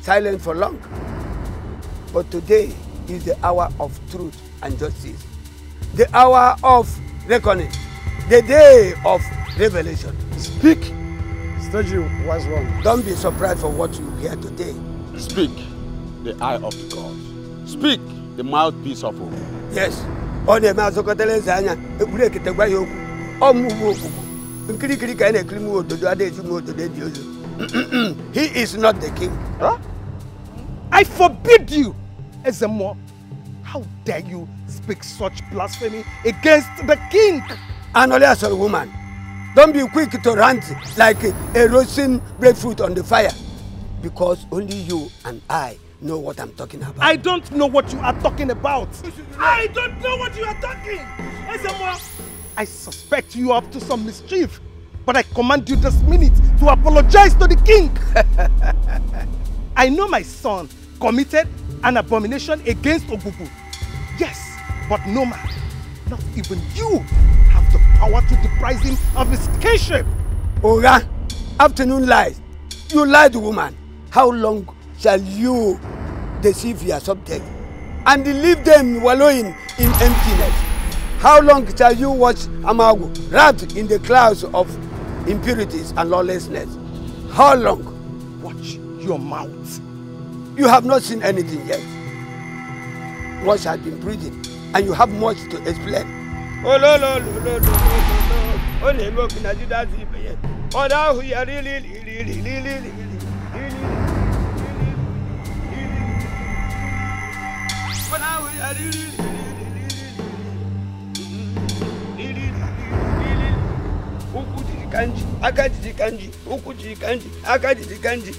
silent for long. But today is the hour of truth and justice, the hour of reckoning, the day of revelation. Speak. Sturgeon was wrong. Don't be surprised for what you hear today. Speak, the eye of God. Speak, the mouthpiece of hope. Yes. ọ na-eme azụkọtala eze anya ekwuru eketegwa ya okwu ọmụmụ okwukwu nkirikiri ka a na-ekiri m ododo adịghịzi m ododo dị ozo he is not the king. Huh? I forbid you, Ezemo. How dare you speak such blasphemy against the king? And only Anọlị asọrọ woman. Don't be quick to rant like a roasting breadfruit on the fire. Because only you and I know what I'm talking about. I don't know what you are talking about. I don't know what you are talking. I suspect you up to some mischief. But I command you this minute to apologize to the king. I know my son committed an abomination against Obubu. Yes, but no man, not even you, I want to deprive him of his kingship. Oga, afternoon lies. You lied, woman. How long shall you deceive your subject and leave them wallowing in emptiness? How long shall you watch Amagu wrapped in the clouds of impurities and lawlessness? How long? Watch your mouth. You have not seen anything yet. Much has been breathing, and you have much to explain. ololololololo na-eme oku na ya ọdụ ahụ ya riri riri riri riri riri ụkwụ jiri kanji aka jiri kanji ụkwụ jiri kanji aka jiri kanji.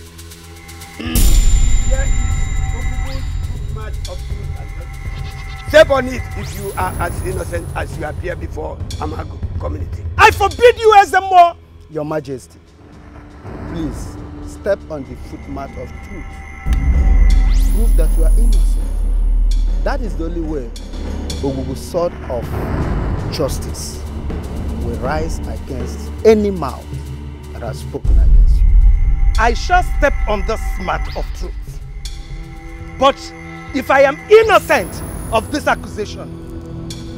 Step on it if you are as innocent as you appear before Amago community. I forbid you, as Ezemo! Your Majesty, please step on the footmat of truth. Prove that you are innocent. That is the only way Ogugu sword of justice will rise against any mouth that has spoken against you. I shall step on the smart of truth. But if I am innocent, of this accusation,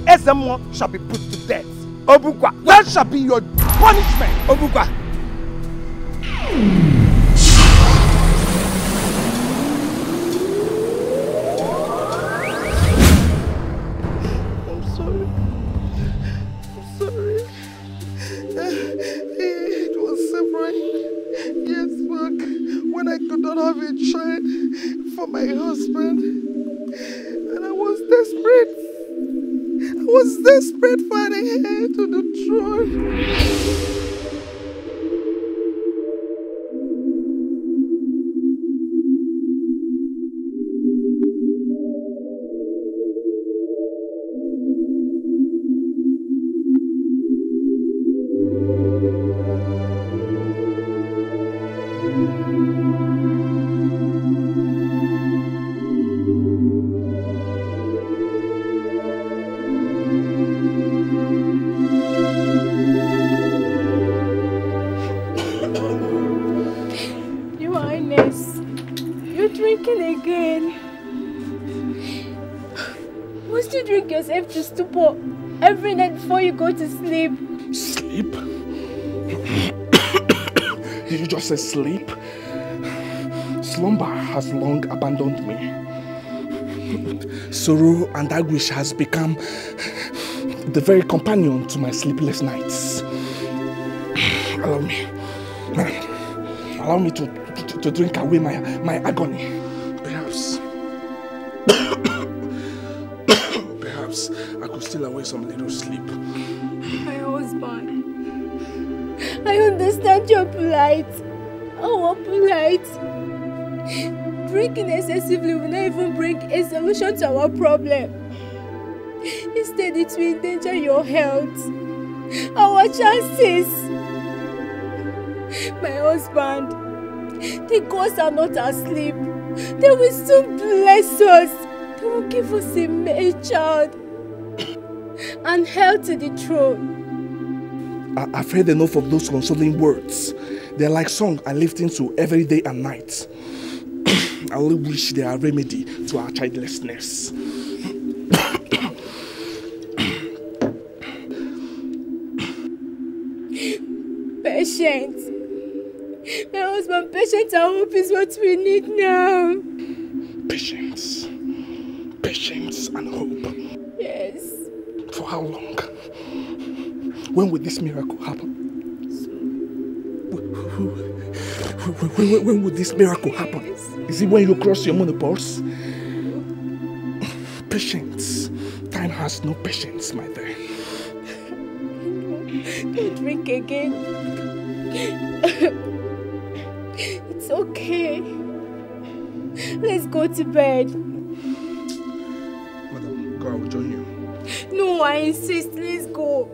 Ezemo shall be put to death. Obukwa, that shall be your punishment. Obukwa. I'm sorry. I'm sorry. It was several Yes, Mark. when I could not have a child for my husband was desperate. I was desperate for the heir to the throne. stupor every night before you go to sleep. Sleep? you just say sleep? Slumber has long abandoned me. Sorrow and anguish has become the very companion to my sleepless nights. Allow me. Allow me to, to, to drink away my, my agony. enjoy some little sleep. My husband, I understand your plight. Our plight. Drinking excessively will not even bring a solution to our problem. Instead, it will endanger your health, our chances. My husband, the ghosts are not asleep. They will soon bless us. They will give us a male child and held to the throne. I, I've heard enough of those consoling words. They're like song I lift into every day and night. I only wish they are a remedy to our childlessness. Patience. My husband, patience and hope is what we need now. Patience. Patience and hope. Yes. For how long? When will this miracle happen? when, when, when, when, will this miracle happen? Is it when you cross your money pulse? Patience. Time has no patience, my dear. Don't drink again. it's okay. Let's go to bed. Madam, God will join you. No, I insist. Let's go.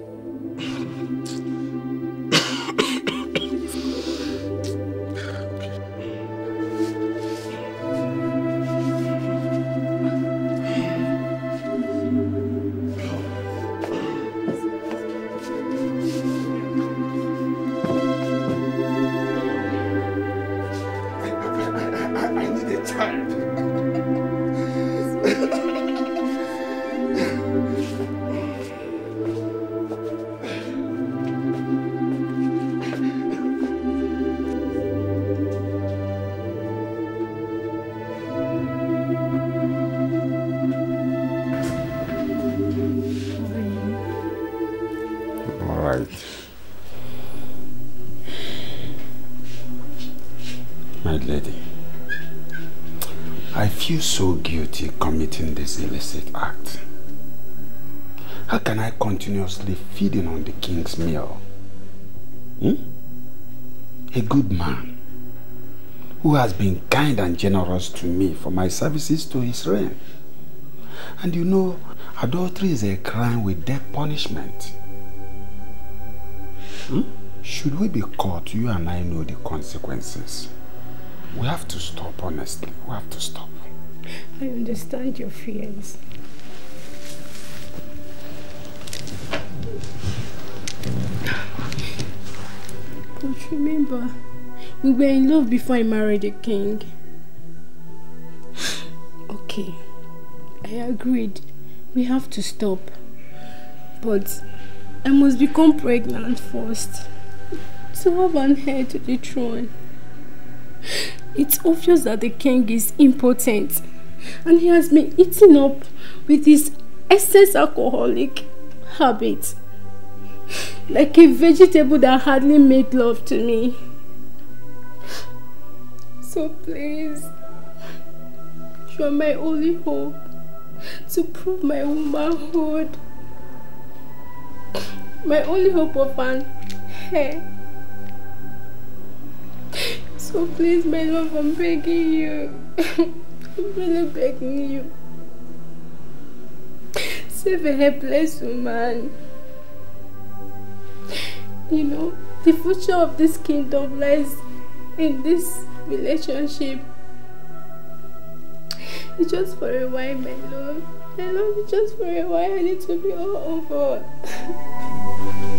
How can I continuously feeding on the king's meal? Hmm? A good man who has been kind and generous to me for my services to his reign. And you know, adultery is a crime with death punishment. Hmm? Should we be caught, you and I know the consequences. We have to stop, honestly. We have to stop. I understand your fears. But remember, we were in love before I married the king. okay, I agreed. We have to stop. But I must become pregnant first. To have an heir to the throne. It's obvious that the king is impotent and he has been eating up with his excess alcoholic habits like a vegetable that hardly made love to me. So please, you are my only hope to prove my womanhood. My only hope of an hair. So please, my love, I'm begging you. I'm really begging you. Save a helpless woman. You know, the future of this kingdom lies in this relationship. It's just for a while, my love. My love it's just for a while. I need to be all over.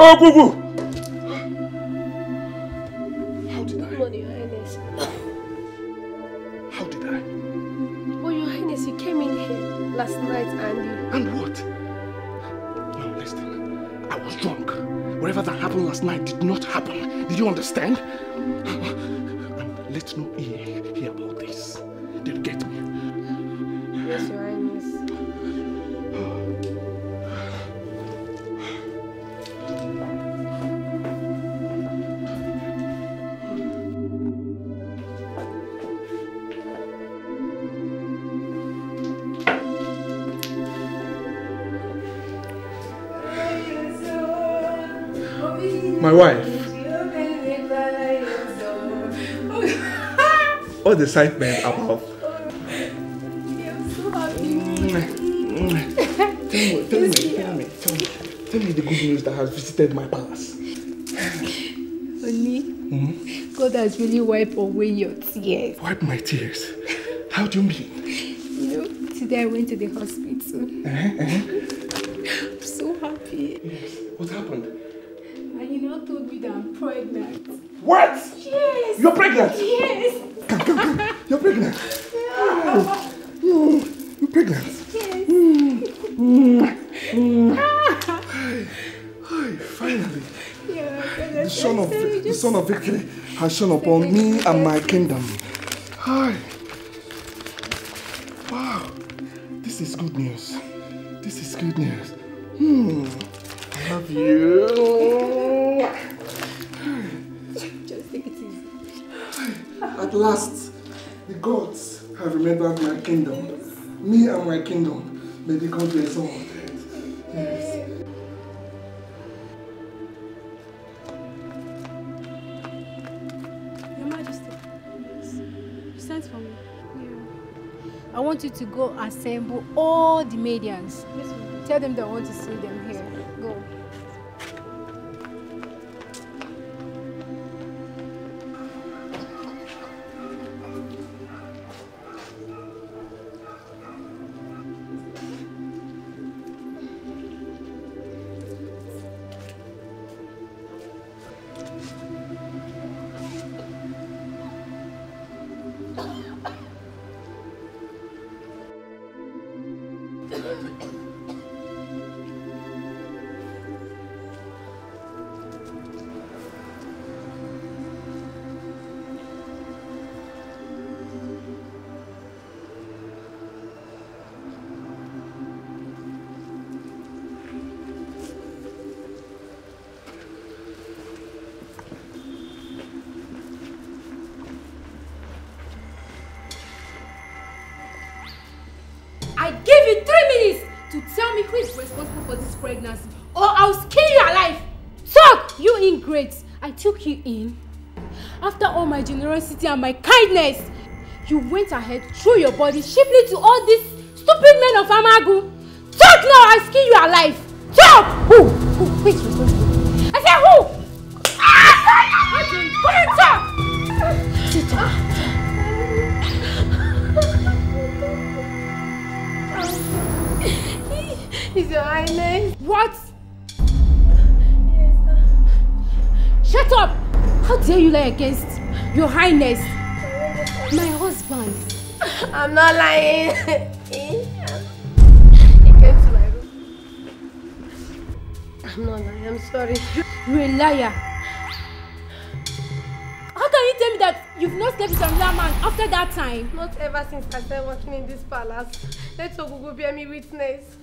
Oh, boo-boo! excitement above. tell me, tell me, tell me, tell me, tell me the good news that has visited my palace. Oni, hmm? God has really wiped away your tears. Wipe my tears? How do you mean? You know, today I went to the hospital. Uh -huh, uh -huh. I'm so happy. Yes. What happened? And you now told me that I'm pregnant. What? compassion upon me and my kingdom. Hi. Wow. This is good news. This is good news. Hmm. I love you. At last, the gods have remembered my kingdom. Me and my kingdom. May the gods be exalted. to go assemble all the medians. Tell them they want to see them. great. I took you in. After all my generosity and my kindness, you went ahead, threw your body cheaply to all these stupid men of Amagu. Talk now, I skin you alive. Talk! Who? Who? Wait, wait, wait. I said who? Is ah! your highness? What? Shut up! How dare you lie against your highness? My husband. I'm not lying. I'm not lying, I'm sorry. You're a liar. How can you tell me that you've not slept with another man after that time? Not ever since I started working in this palace. Let Ogugu bear me witness.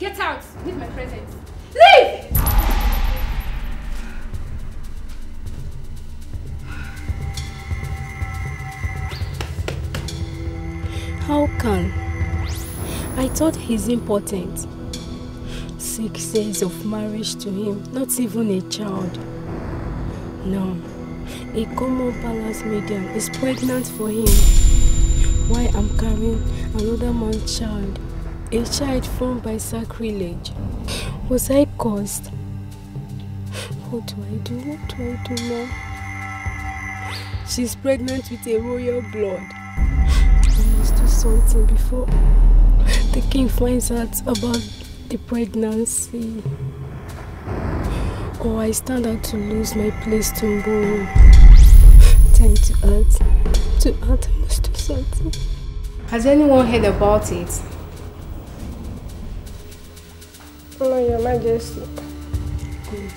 Get out! Leave my presence! Leave! How can? I thought he's important. Six years of marriage to him, not even a child. No, a common palace medium is pregnant for him. Why I'm carrying another man's child? a child formed by sacrilege. Was I caused? What do I do? What do I do now? She's pregnant with a royal blood. I must do something before the king finds out about the pregnancy. Or I stand out to lose my place tomorrow. Time to act. To act, I must do something. Has anyone heard about it? Honor your majesty. Good.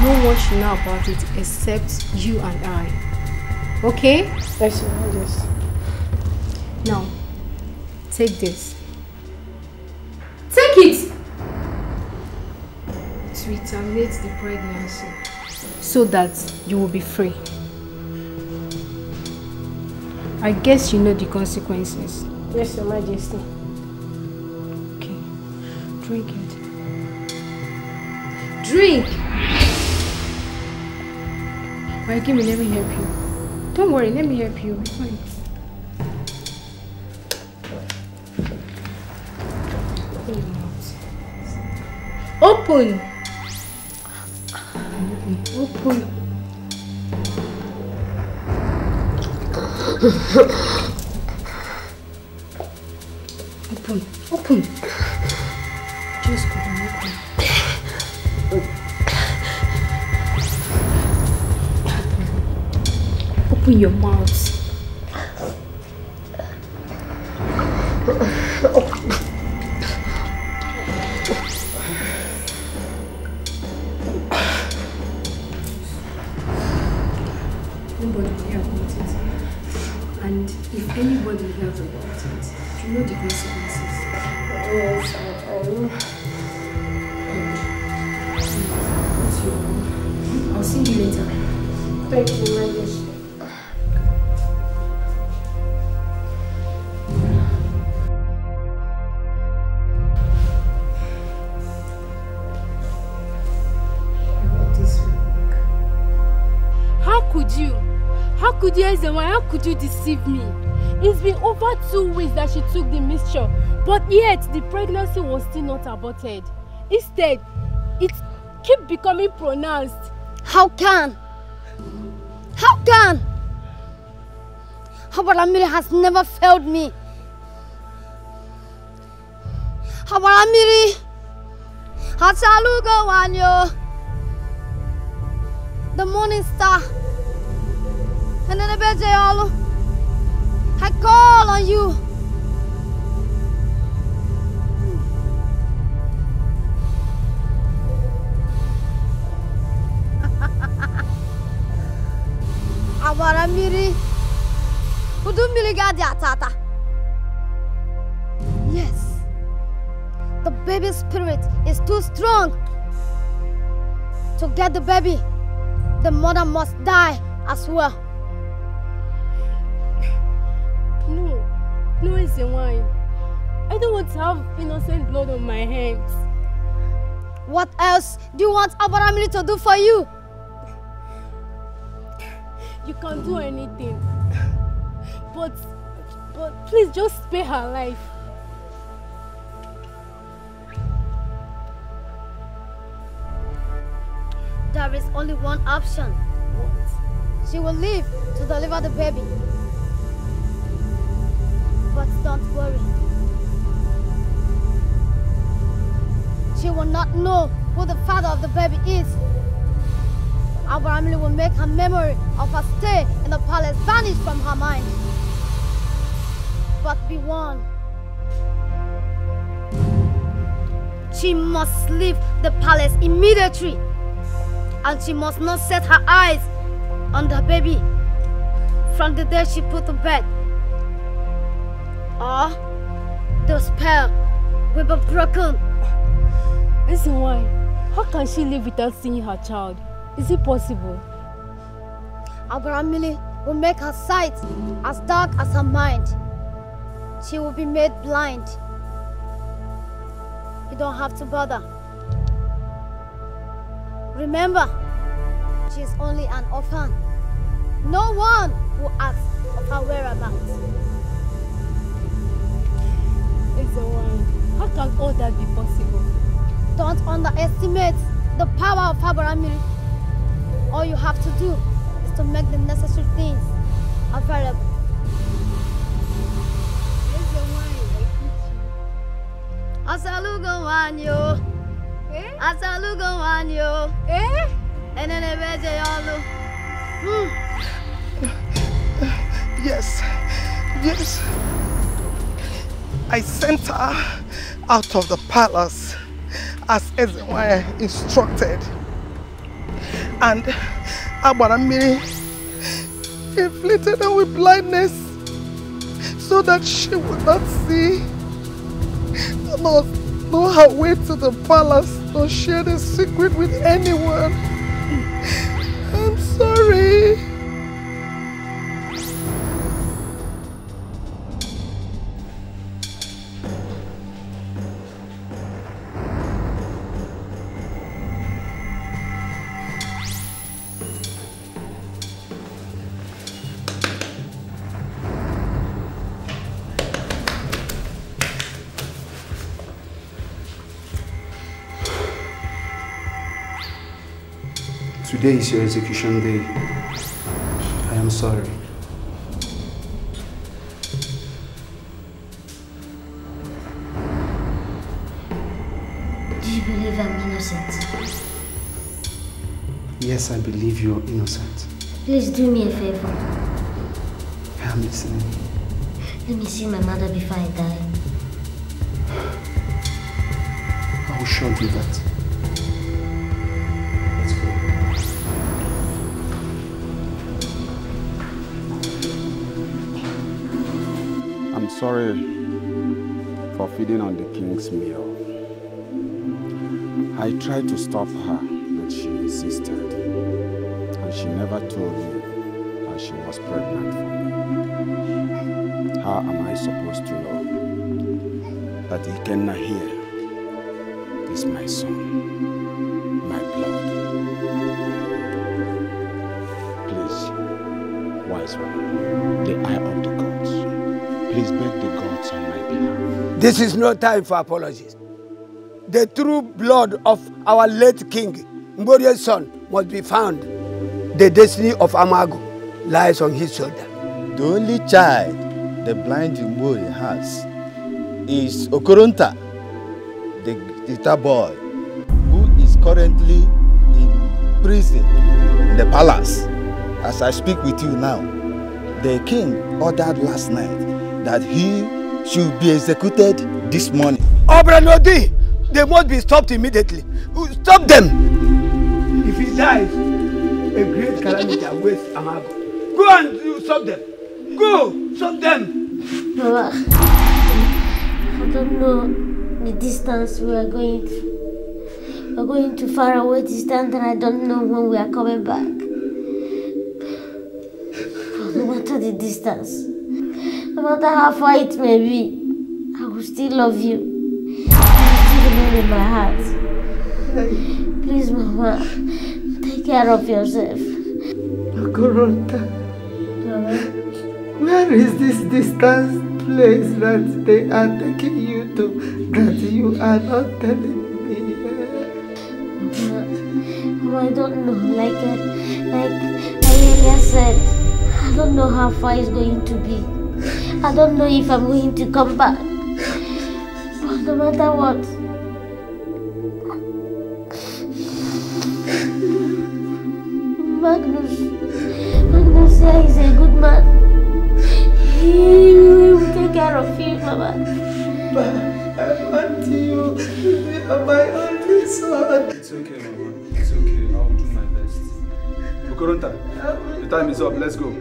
No one should know about it except you and I. Okay? Yes, your majesty. Now, take this. Take it! To retaliate the pregnancy. So that you will be free. I guess you know the consequences. Yes, Your Majesty. Okay, drink it drink. Alright, give me, let me help you. Don't worry, let me help you. It's fine. Open Open! Open. Open. Open. Just go. Open your mouth. Nobody here about it. And if anybody hears about it, you know the consequences. Yes, I, I I'll see you later. Thank you, my poison. Why? How could you deceive me? It's been over two weeks that she took the mixture, but yet the pregnancy was still not aborted. Instead, it keep becoming pronounced. How can? How can? Habaramiri has never failed me. Habaramiri Hatsalugo Wanyo. The morning star. And then Ebenezer, I call on you. Agbara mmiri, udu mmiri ga-adị ata ata. Yes, the baby spirit is too strong. To get the baby, the mother must die as well. No reason why. I don't want to have innocent blood on my hands. What else do you want Abaramili to do for you? You can not do anything. But, but please just spare her life. There is only one option. What? She will live to deliver the baby. But don't worry. She will not know who the father of the baby is. Our family will make her memory of her stay in the palace vanish from her mind. But be warned. She must leave the palace immediately. And she must not set her eyes on the baby from the day she put to bed. Ah, those will be broken. This why? How can she live without seeing her child? Is it possible? Abrahamili will make her sight as dark as her mind. She will be made blind. You don't have to bother. Remember, she is only an orphan. No one will ask of her whereabouts how can all that be possible? Don't underestimate the power of Habaramiri. All you have to do is to make the necessary things available. Eh? Eh? Enene yolu. Hmm. Yes. Yes. I sent her out of the palace as Ezenwaya instructed. And Abaramiri inflicted her with blindness so that she would not see nor know her way to the palace nor share the secret with anyone. I'm sorry. Today is your execution day. I am sorry. Do you believe I'm innocent? Yes, I believe you're innocent. Please do me a favor. I'm listening. Let me see my mother before I die. I will show you that. sorry for feeding on the king's meal. I tried to stop her, but she insisted. And she never told me that she was pregnant for me. How am I supposed to know that he cannot hear? This is no time for apologies. The true blood of our late king, Ngorie's son, must be found. The destiny of Amago lies on his shoulder. The only child the blind Ngori has is Okoronta, the guitar boy, who is currently in prison in the palace. As I speak with you now, the king ordered last night that he should be executed this morning. Obranodi, they must be stopped immediately. Stop them! If he dies, a great calamity awaits Amago. Go and uh, stop them. Go, stop them. I don't know the distance we are going to. are going to far away distance and I don't know when we are coming back. No matter the distance, No matter how far it may be, I will still love you. I will still remain in my heart. Please, Mama, take care of yourself. Okorota, where is this distant place that they are taking you to that you are not telling I don't know. Like, like, like I said, I don't know how far it's going to be. I don't know if I'm going to come back. But no matter what, Magnus, Magnus is a good man. He will take care of you, Mama. But I want you to be my only son. It's okay, Mama. It's okay. I'll do my best. Bukurunta, the time is up. Let's go.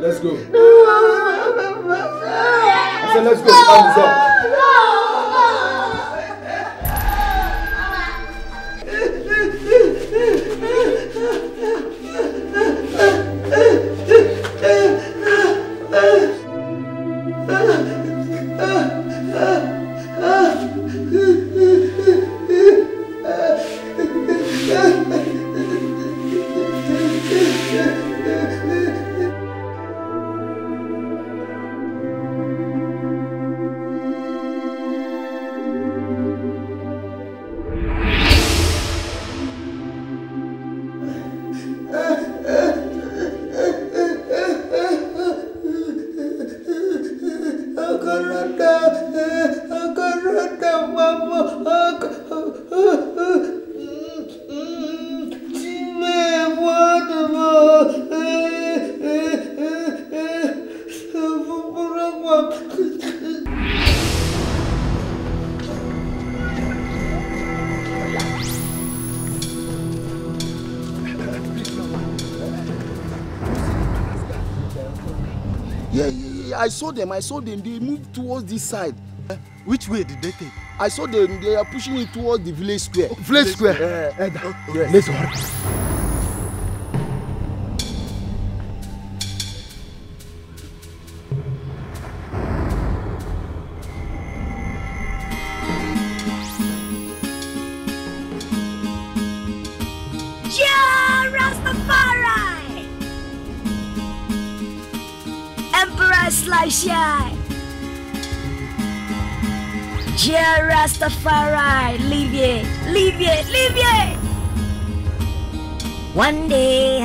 Let's go. I said, let's go. Hands up. saw them i saw them they moved towards this side. Uh, which way did they take. i saw them they are pushing it towards the village square. Oh, village, village square. square. Uh, uh, okay. yes. let's hurry. One day,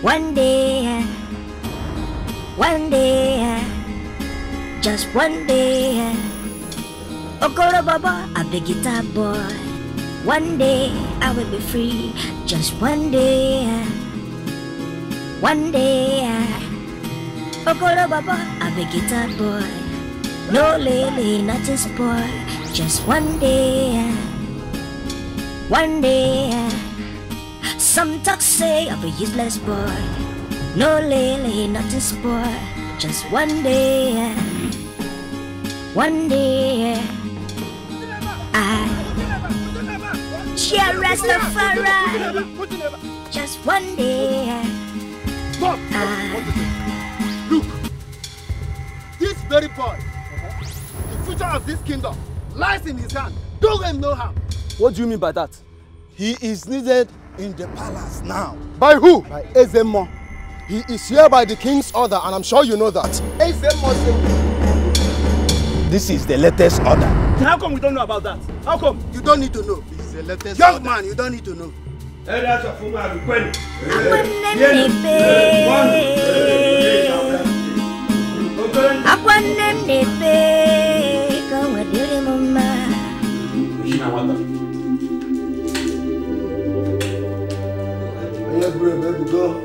one day, one day, just one day. Okoro Baba, I'm the guitar boy. One day I will be free, just one day, one day. Okoro Baba, I'm the guitar boy. No lily, nothing spoil, just one day, one day. Some talk say I'm a useless boy. No lily, nothing sport. Just one day, one day, I shall Rastafari. Just one day, I look. This very boy, the future of this kingdom lies in his hand. Do him no harm. What do you mean by that? He is needed in the now. By who? By Ezemo. He is here by the king's order and I'm sure you know that. Ezemo This is the latest order. How come we don't know about that? How come? You don't need to know. This is the latest Young order. man, you don't need to know. Akwanne m na-efe ka o nwedịrị m mma. Добре, бе го до.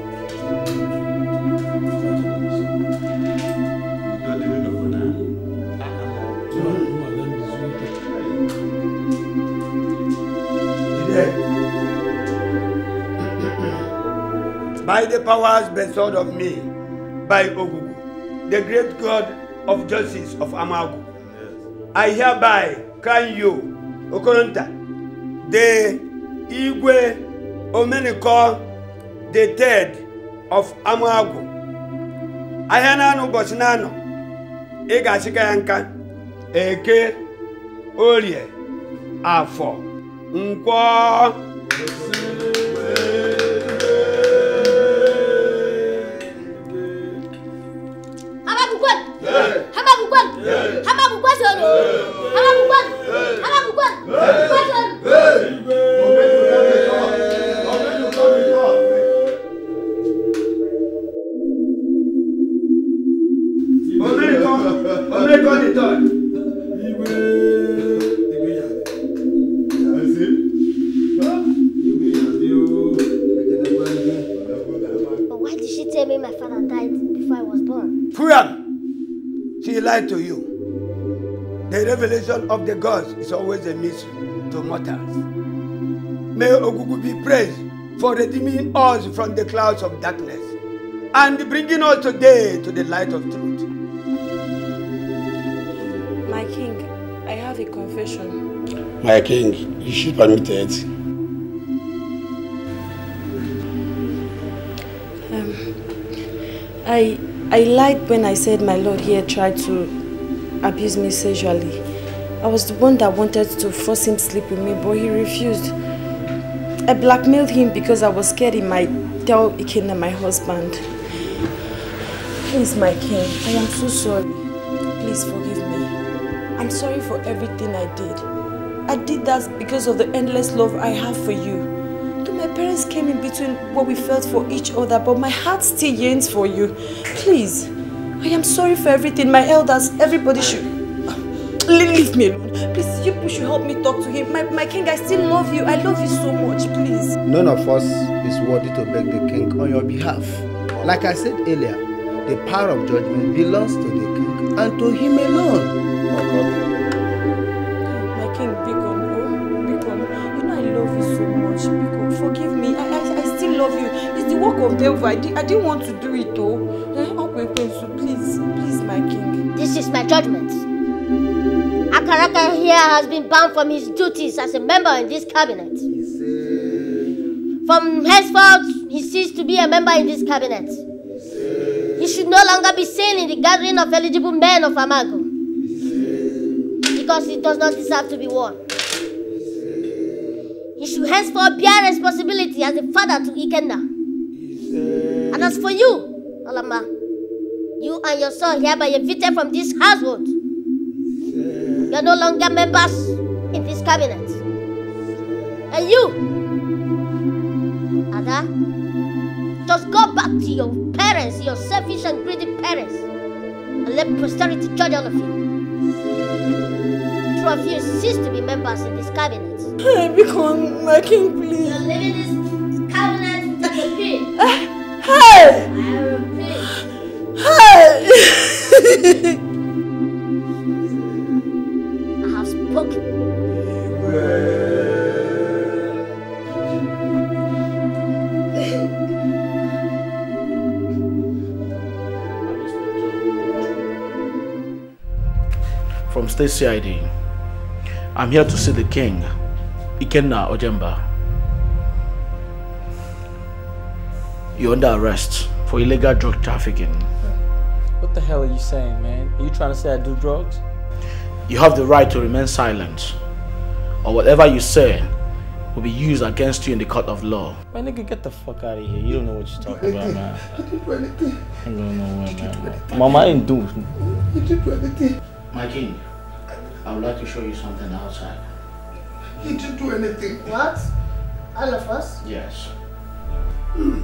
By the powers bestowed of me, by Ogugu, the great God of justice of Amagu, yes. I hereby crown you, Okoronta, the Igwe Omeniko the third of Amuagu ahịa naanị ụbọchị na-anọ ị ga-achịka ya nka eke orie afọ nkwọ Habakukwan! Habakukwan! Habakukwan! Lie lied to you. The revelation of the gods is always a mystery to mortals. May Ogugu be praised for redeeming us from the clouds of darkness and bringing us today to the light of truth. My king, I have a confession. My king, you should permit it. Um, I I lied when I said my lord here tried to abuse me sexually. I was the one that wanted to force him to sleep with me, but he refused. I blackmailed him because I was scared he might tell Ikenna my husband. Please, my king, I am so sorry. Please forgive me. I'm sorry for everything I did. I did that because of the endless love I have for you. My parents came in between what we felt for each other, but my heart still yearns for you. Please, I am sorry for everything. My elders, everybody should... Leave me alone. Please, you should help me talk to him. My, my king, I still love you. I love you so much, please. None of us is worthy to beg the king on your behalf. Like I said earlier, the power of judgment belongs to the king and to him alone. of I, di I didn't want to do it though. Eh, please, please, my king. This is my judgment. Akaraka here has been banned from his duties as a member in this cabinet. From henceforth, he ceased to be a member in this cabinet. He should no longer be seen in the gathering of eligible men of Amago. Because he does not deserve to be one. He should henceforth bear responsibility as a father to Ikenna. And as for you, Alama, you and your son hereby evicted from this household. You are no longer members in this cabinet. And you, Ada, just go back to your parents, your selfish and greedy parents, and let posterity judge all of you. Two of you cease to be members in this cabinet. I become my king, please. You're this Hey! Hey! from State CID. I'm here to see the king, Ikenna Ojemba. You're under arrest for illegal drug trafficking. What the hell are you saying, man? Are you trying to say I do drugs? You have the right to remain silent. Or whatever you say will be used against you in the court of law. My nigga, get the fuck out of here. You don't know what you're talking about, man. I didn't do anything. I don't know what, man. Mama, I didn't do You didn't do anything. My king, I would like to show you something outside. He didn't do anything. What? All of us? Yes. Mm.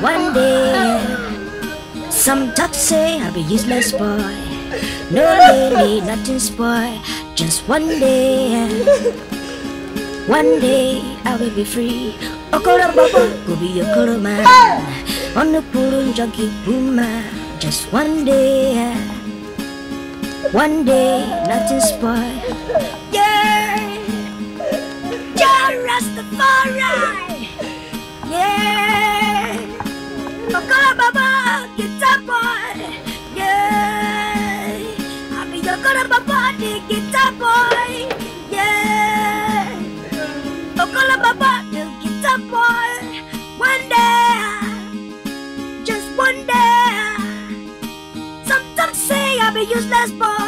one day. Some talk say I'll be useless boy. No lady, nothing's boy. Just one day. One day I will be free. Okoro baba, go be okoro man. On the purun junkie boomer. Just one day. One day, nothing's boy. Yeah. Yeah, Rastafari. Yeah. So good, Mama! Get that boy! Yeah! I'll Happy you're good, Mama! Get that boy! Yeah! So good, Mama! Get that boy! One day! Just one day! Sometimes say I'm a useless boy!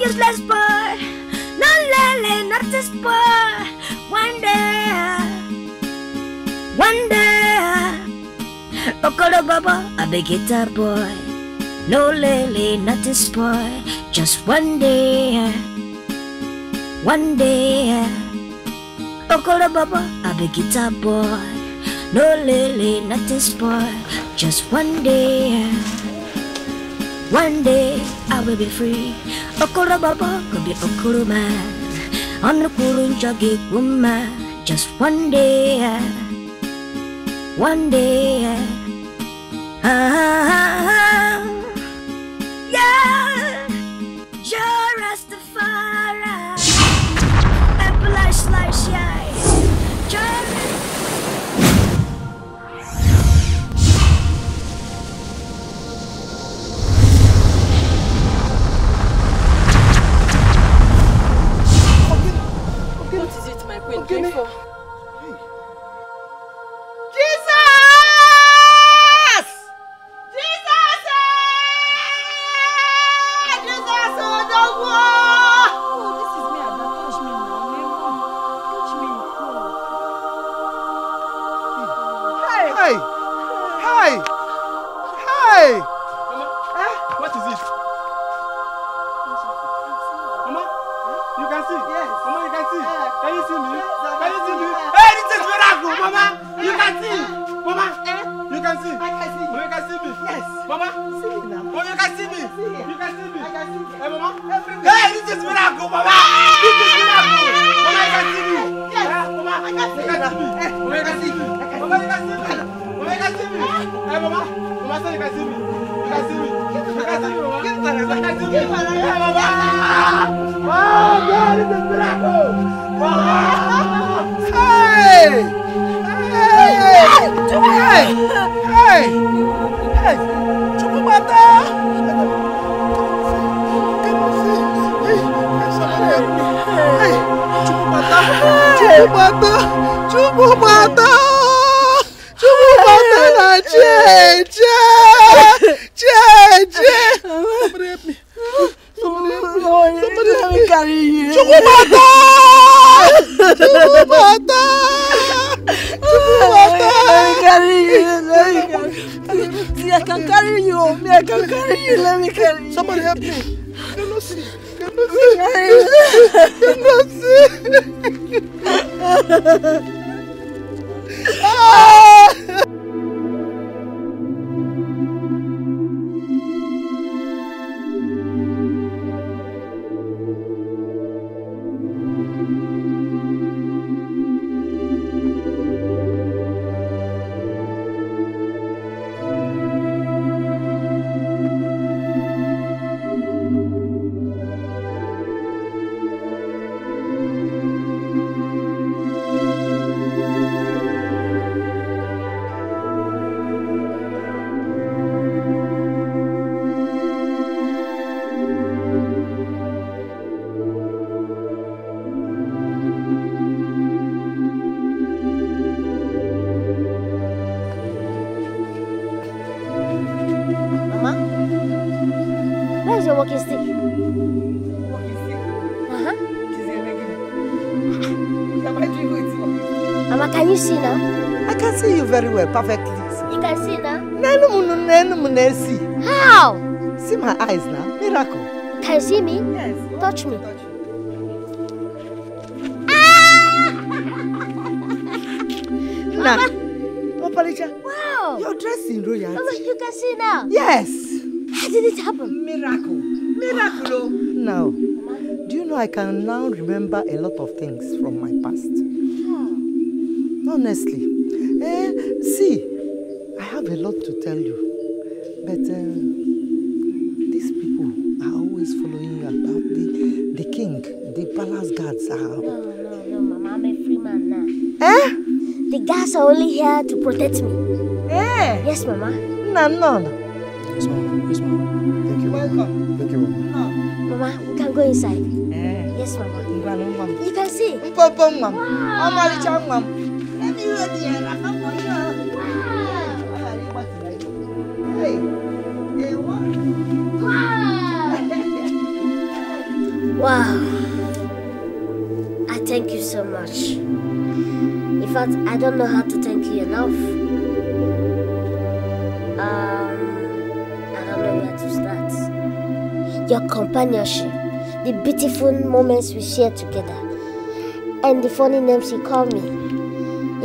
useless boy. No lele, not this boy. One day, one day, Okoro Baba, a big guitar boy. No lele, not this boy. Just one day, one day, Okoro Baba, a big guitar boy. No lele, not this boy. Just one day. One day I will be free. Okorobaba could be Okuruma On the Kurunja Giguma Just one day One day ah, ah, ah, ah. well perfectly. You can see now? How? See my eyes now. Miracle. Can you see me? Yes. Touch me. Touch ah! Nana. Opalicha. Oh, wow. You're dressed in royalty. you can see now. Yes. How did it happen? Miracle. Miracle. Oh. Now, do you know I can now remember a lot of things from my past? Honestly. Eh, have a lot to tell you, but uh, these people are always following you about the, the king, the palace guards are. No, no, no, Mama, I'm a free man now. Eh? The guards are only here to protect me. Eh? Yes, Mama. No, no, no. Yes, Mama. Yes, Mama. Thank you. Welcome. Thank you, Mama. Mama, we can go inside. Eh? Yes, Mama. You can see. Wow. Let me hear the Wow. I thank you so much. In fact, I don't know how to thank you enough. Um, I don't know where to start. Your companionship, the beautiful moments we share together, and the funny names you call me.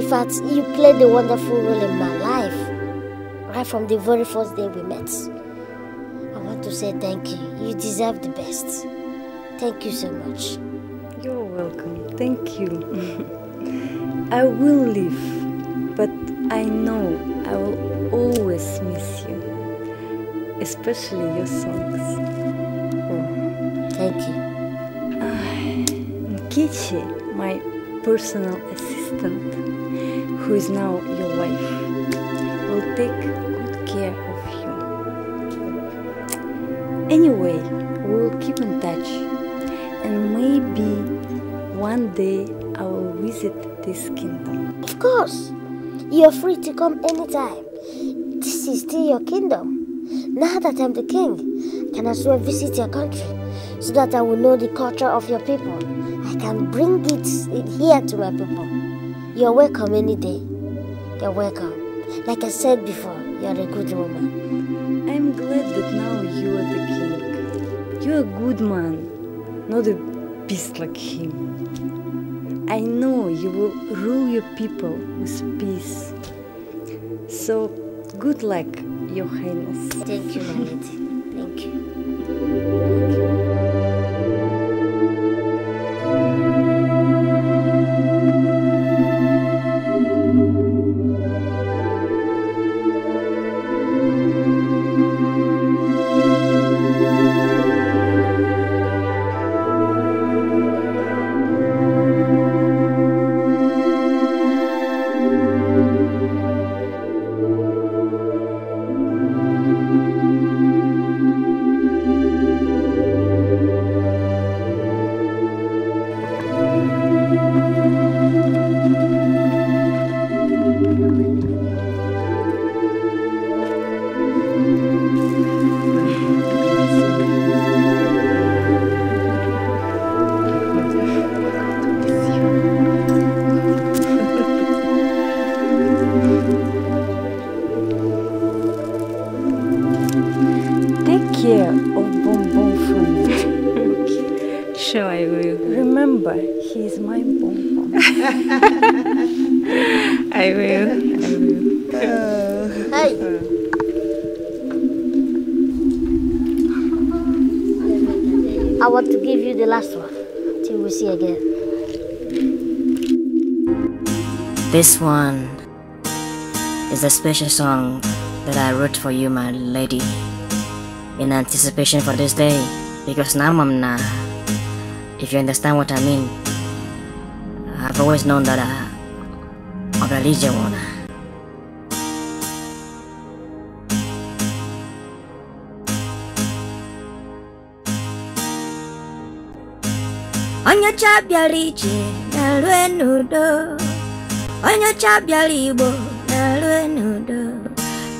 In fact, you played a wonderful role in my life, right from the very first day we met. I want to say thank you. You deserve the best. Thank you so much. You're welcome. Thank you. I will leave, but I know I will always miss you, especially your songs. thank you. Kichi, my personal assistant, who is now your wife, will take good care of you. Anyway, we will keep in touch and maybe one day I will visit this kingdom. Of course, you're free to come anytime. This is still your kingdom. Now that I'm the king, I can as well visit your country so that I will know the culture of your people. I can bring it here to my people. You're welcome any day. You're welcome. Like I said before, you're a good woman. I'm glad that now you are the king. You're a good man not a beast like him. I know you will rule your people with peace. So good luck, Your Highness. Thank you, Vanity. Thank you. special song that I wrote for you, my lady, in anticipation for this day, because now I'm If you understand what I mean, I've always known that I, am a religion one. Onyecha bịara ije na-alụ n'udo Onyecha bịara na-alụ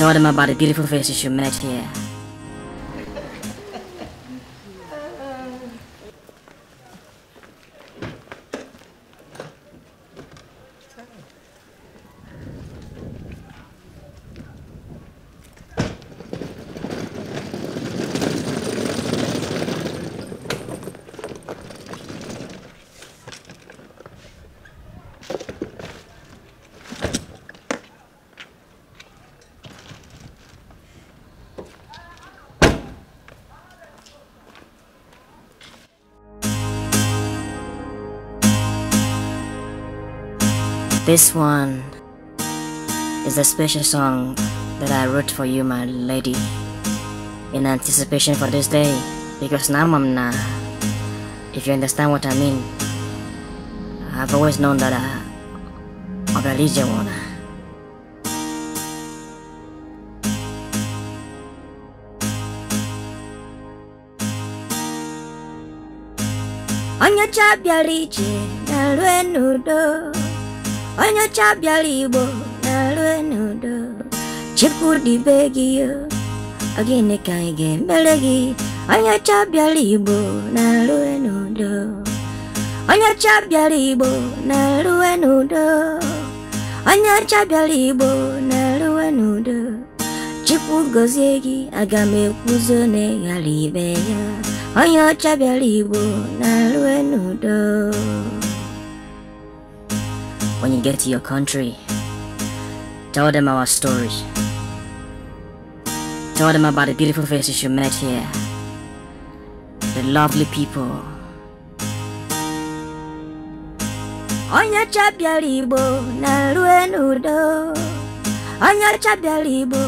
Told him about the beautiful faces you met here. This one is a special song that I wrote for you, my lady, in anticipation for this day, because now, Mamna, if you understand what I mean, I've always known that I, I'm a religion one. Onye ọcha bịara ije na-alụ onye ọcha bịara igbo na n'udo chukwu dị be gị gịnị ka anyị ga gị onye ọcha igbo na-alụ n'udo onye ọcha bịara igbo na n'udo onye n'udo gozie gị aga m ekwuzo na ịghara ibe ya onye ọcha bịara igbo na-alụ n'udo When you get to your country, tell them our stories. Tell them about the beautiful faces you met here, the lovely people. Onye chabiara libo na-eru n'udo Onye libo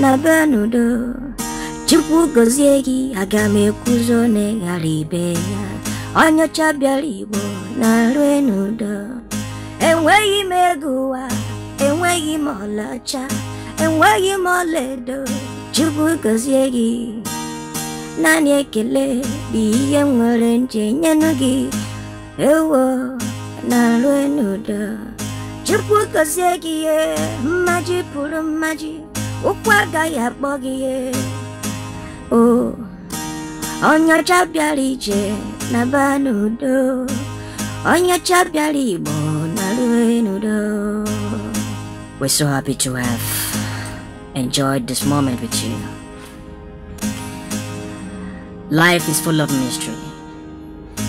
na benudo. n'udo Chukwu gozie kuzone aga m ekwuzo libo na-eru enweghị m ego ụwa enweghị m ọlaọcha enweghị m ọlaedo chukwu gọzie gị naanị ekele bụ ihe nwere nje nyenu gị ewo na rue n'udo chukwu gọzie gị ihe mmaji pụrụ mmaji ụkwụ agaghị akpọ gị ihe o onye bịara ije na ba n'udo onye bịara igbo We're so happy to have enjoyed this moment with you. Life is full of mystery.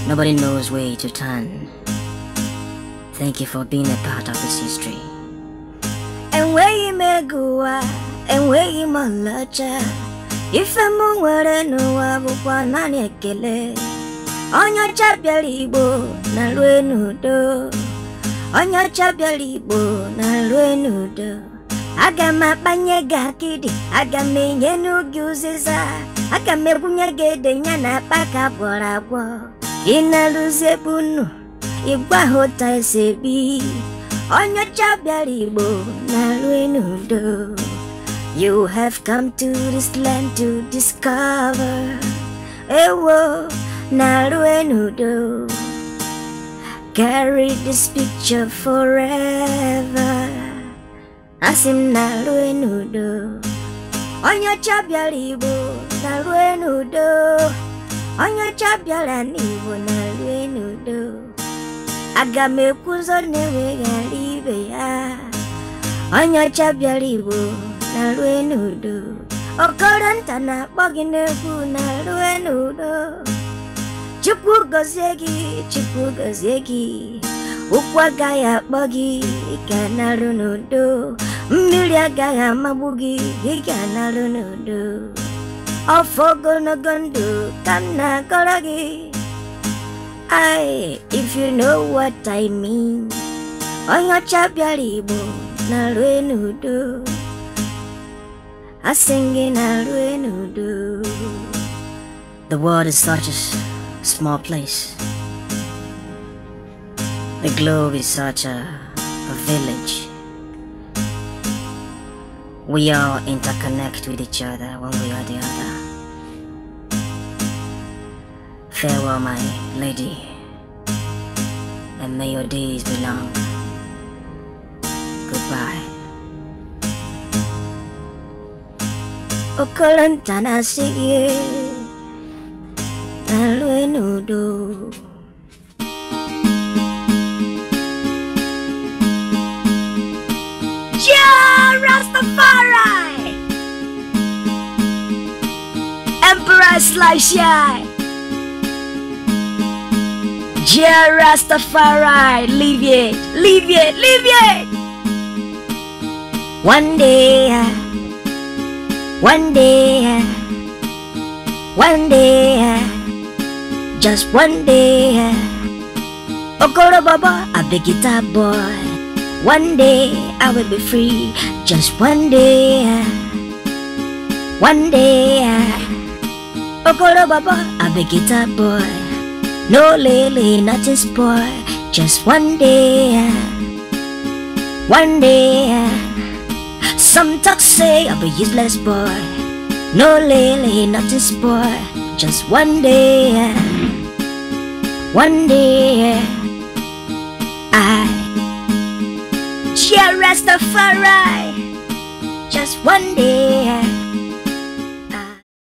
Nobody knows where to turn. Thank you for being a part of this history. And where you may go, and where you may lodge, if I'm on where no, I will want to kill it. On your chapel, Igbo, Nalwe Nudo on your chabeli bunaluenudo agamabanyegakidi agamenyenugiuziza agamebunyegedenya pakabwaragwo inaluzie bunu igwahụta esebi onye ọcha bịara igbo na-alụ n'udo you have come to this land to discover ewo na-alụ n'udo carry this picture forever Asim mna lue n'udo onyocha bịara igbo na lue n'udo onyocha bịara na lue n'udo aga m ekwuzo ya onyocha bịara igbo na lue n'udo okoro nta na-akpọ na lue chukwu gọzie gị chukwu gọzie gị ụkwụ agaghị akpọ gị ga narụ n'udo mmiri agaghị amagbu gị ị if you know what I mean onye ọcha bịara igbo na-arụe n'udo asị gị The world is such a small place. The globe is such a, a village. We all interconnect with each other one way or the other. Farewell, my lady, and may your days be long. Goodbye. Okolantana see you. Lalu Rastafari Emperor Rastafari Leave it, leave it, leave it One day One day one day just one day. Okoro Baba, a big guitar boy. One day I will be free, just one day. One day. Okoro Baba, a big guitar boy. No lily, nothing spoil, just one day. One day. Some talk say I'll be useless boy. No lily, nothing spoil just one day, one day, I shall rest the far just one day.